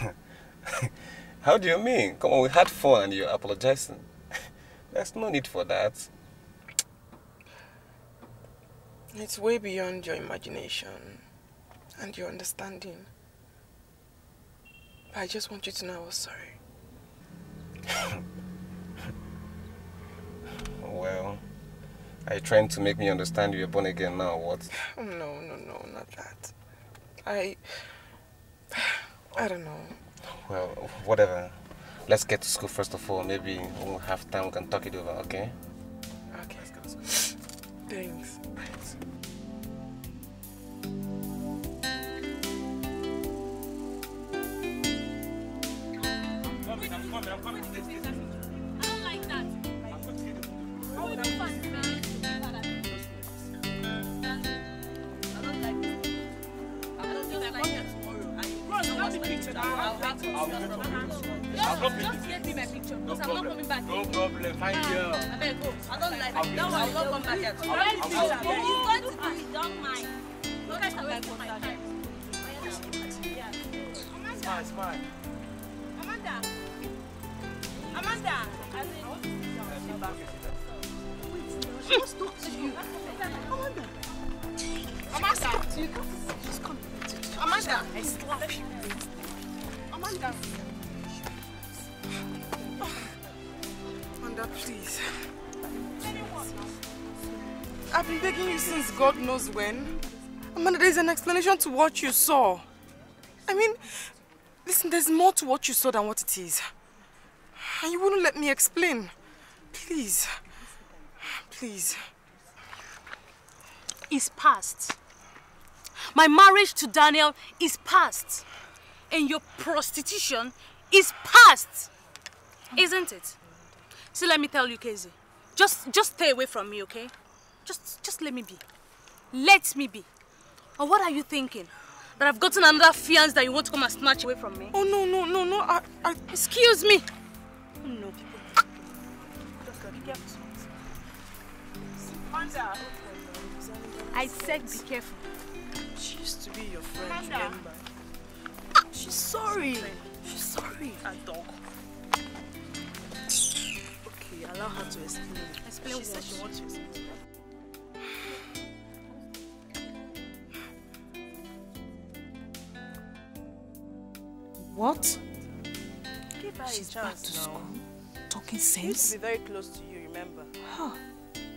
How do you mean? Come on, we had fun and you're apologizing. There's no need for that. It's way beyond your imagination and your understanding. But I just want you to know I was sorry. well, are you trying to make me understand you're born again now, what? Oh, no, no, no, not that. I... I don't know. Well, whatever. Let's get to school first of all. Maybe we'll have time, we can talk it over, okay? Okay. Thanks. Amanda. Amanda, as in... Wait, just talk to you. Amanda. Amanda. Amanda. I slap you. Amanda. Amanda, please. I've been begging you since God knows when. Amanda, there's an explanation to what you saw. I mean, listen, there's more to what you saw than what it is. And you wouldn't let me explain. Please. Please. It's past. My marriage to Daniel is past. And your prostitution is past. Isn't it? So let me tell you, Casey. Just, just stay away from me, okay? Just, just let me be. Let me be. Or what are you thinking? That I've gotten another fiance that you want to come and snatch away from me? Oh, no, no, no, no. I, I... Excuse me. Nope. I said be careful. She used to be your friend, Amanda. remember? She's sorry. She's sorry. A dog. Okay, allow her to explain. Explain she what? said she wants to explain. What? She's back to school, talking sense. She used to be very close to you, remember? Huh.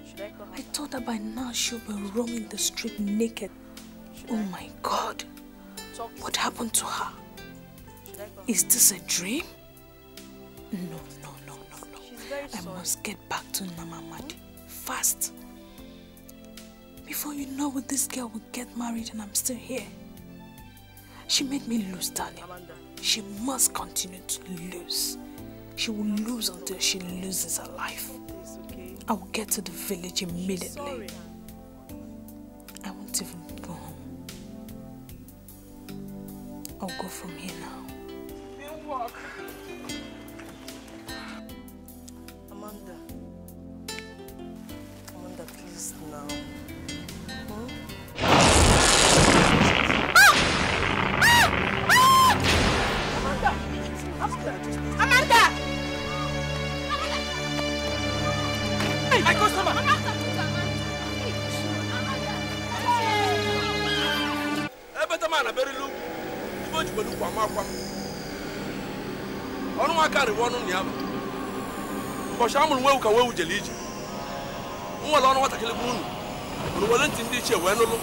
Should I call her I back? thought that by now she'll be roaming the street naked. Should oh I? my God. Talk what happened to her? Is this a dream? No, no, no, no, no. I sorry. must get back to Namamadi. Hmm? Fast. Before you know it, this girl will get married and I'm still here. She made me lose, Daniel. She must continue to lose. She will lose until she loses her life. I will get to the village immediately. I won't even go home. I'll go from here now. We'll walk. Amanda. Amanda, please now. ewu ọnụ na ya bụ ụbọchị a mụrụ nwewu ka nwewu jere ije nwere ọnụ nwatakịrị bụ unu unu were ntị ndị iche wee nụlụ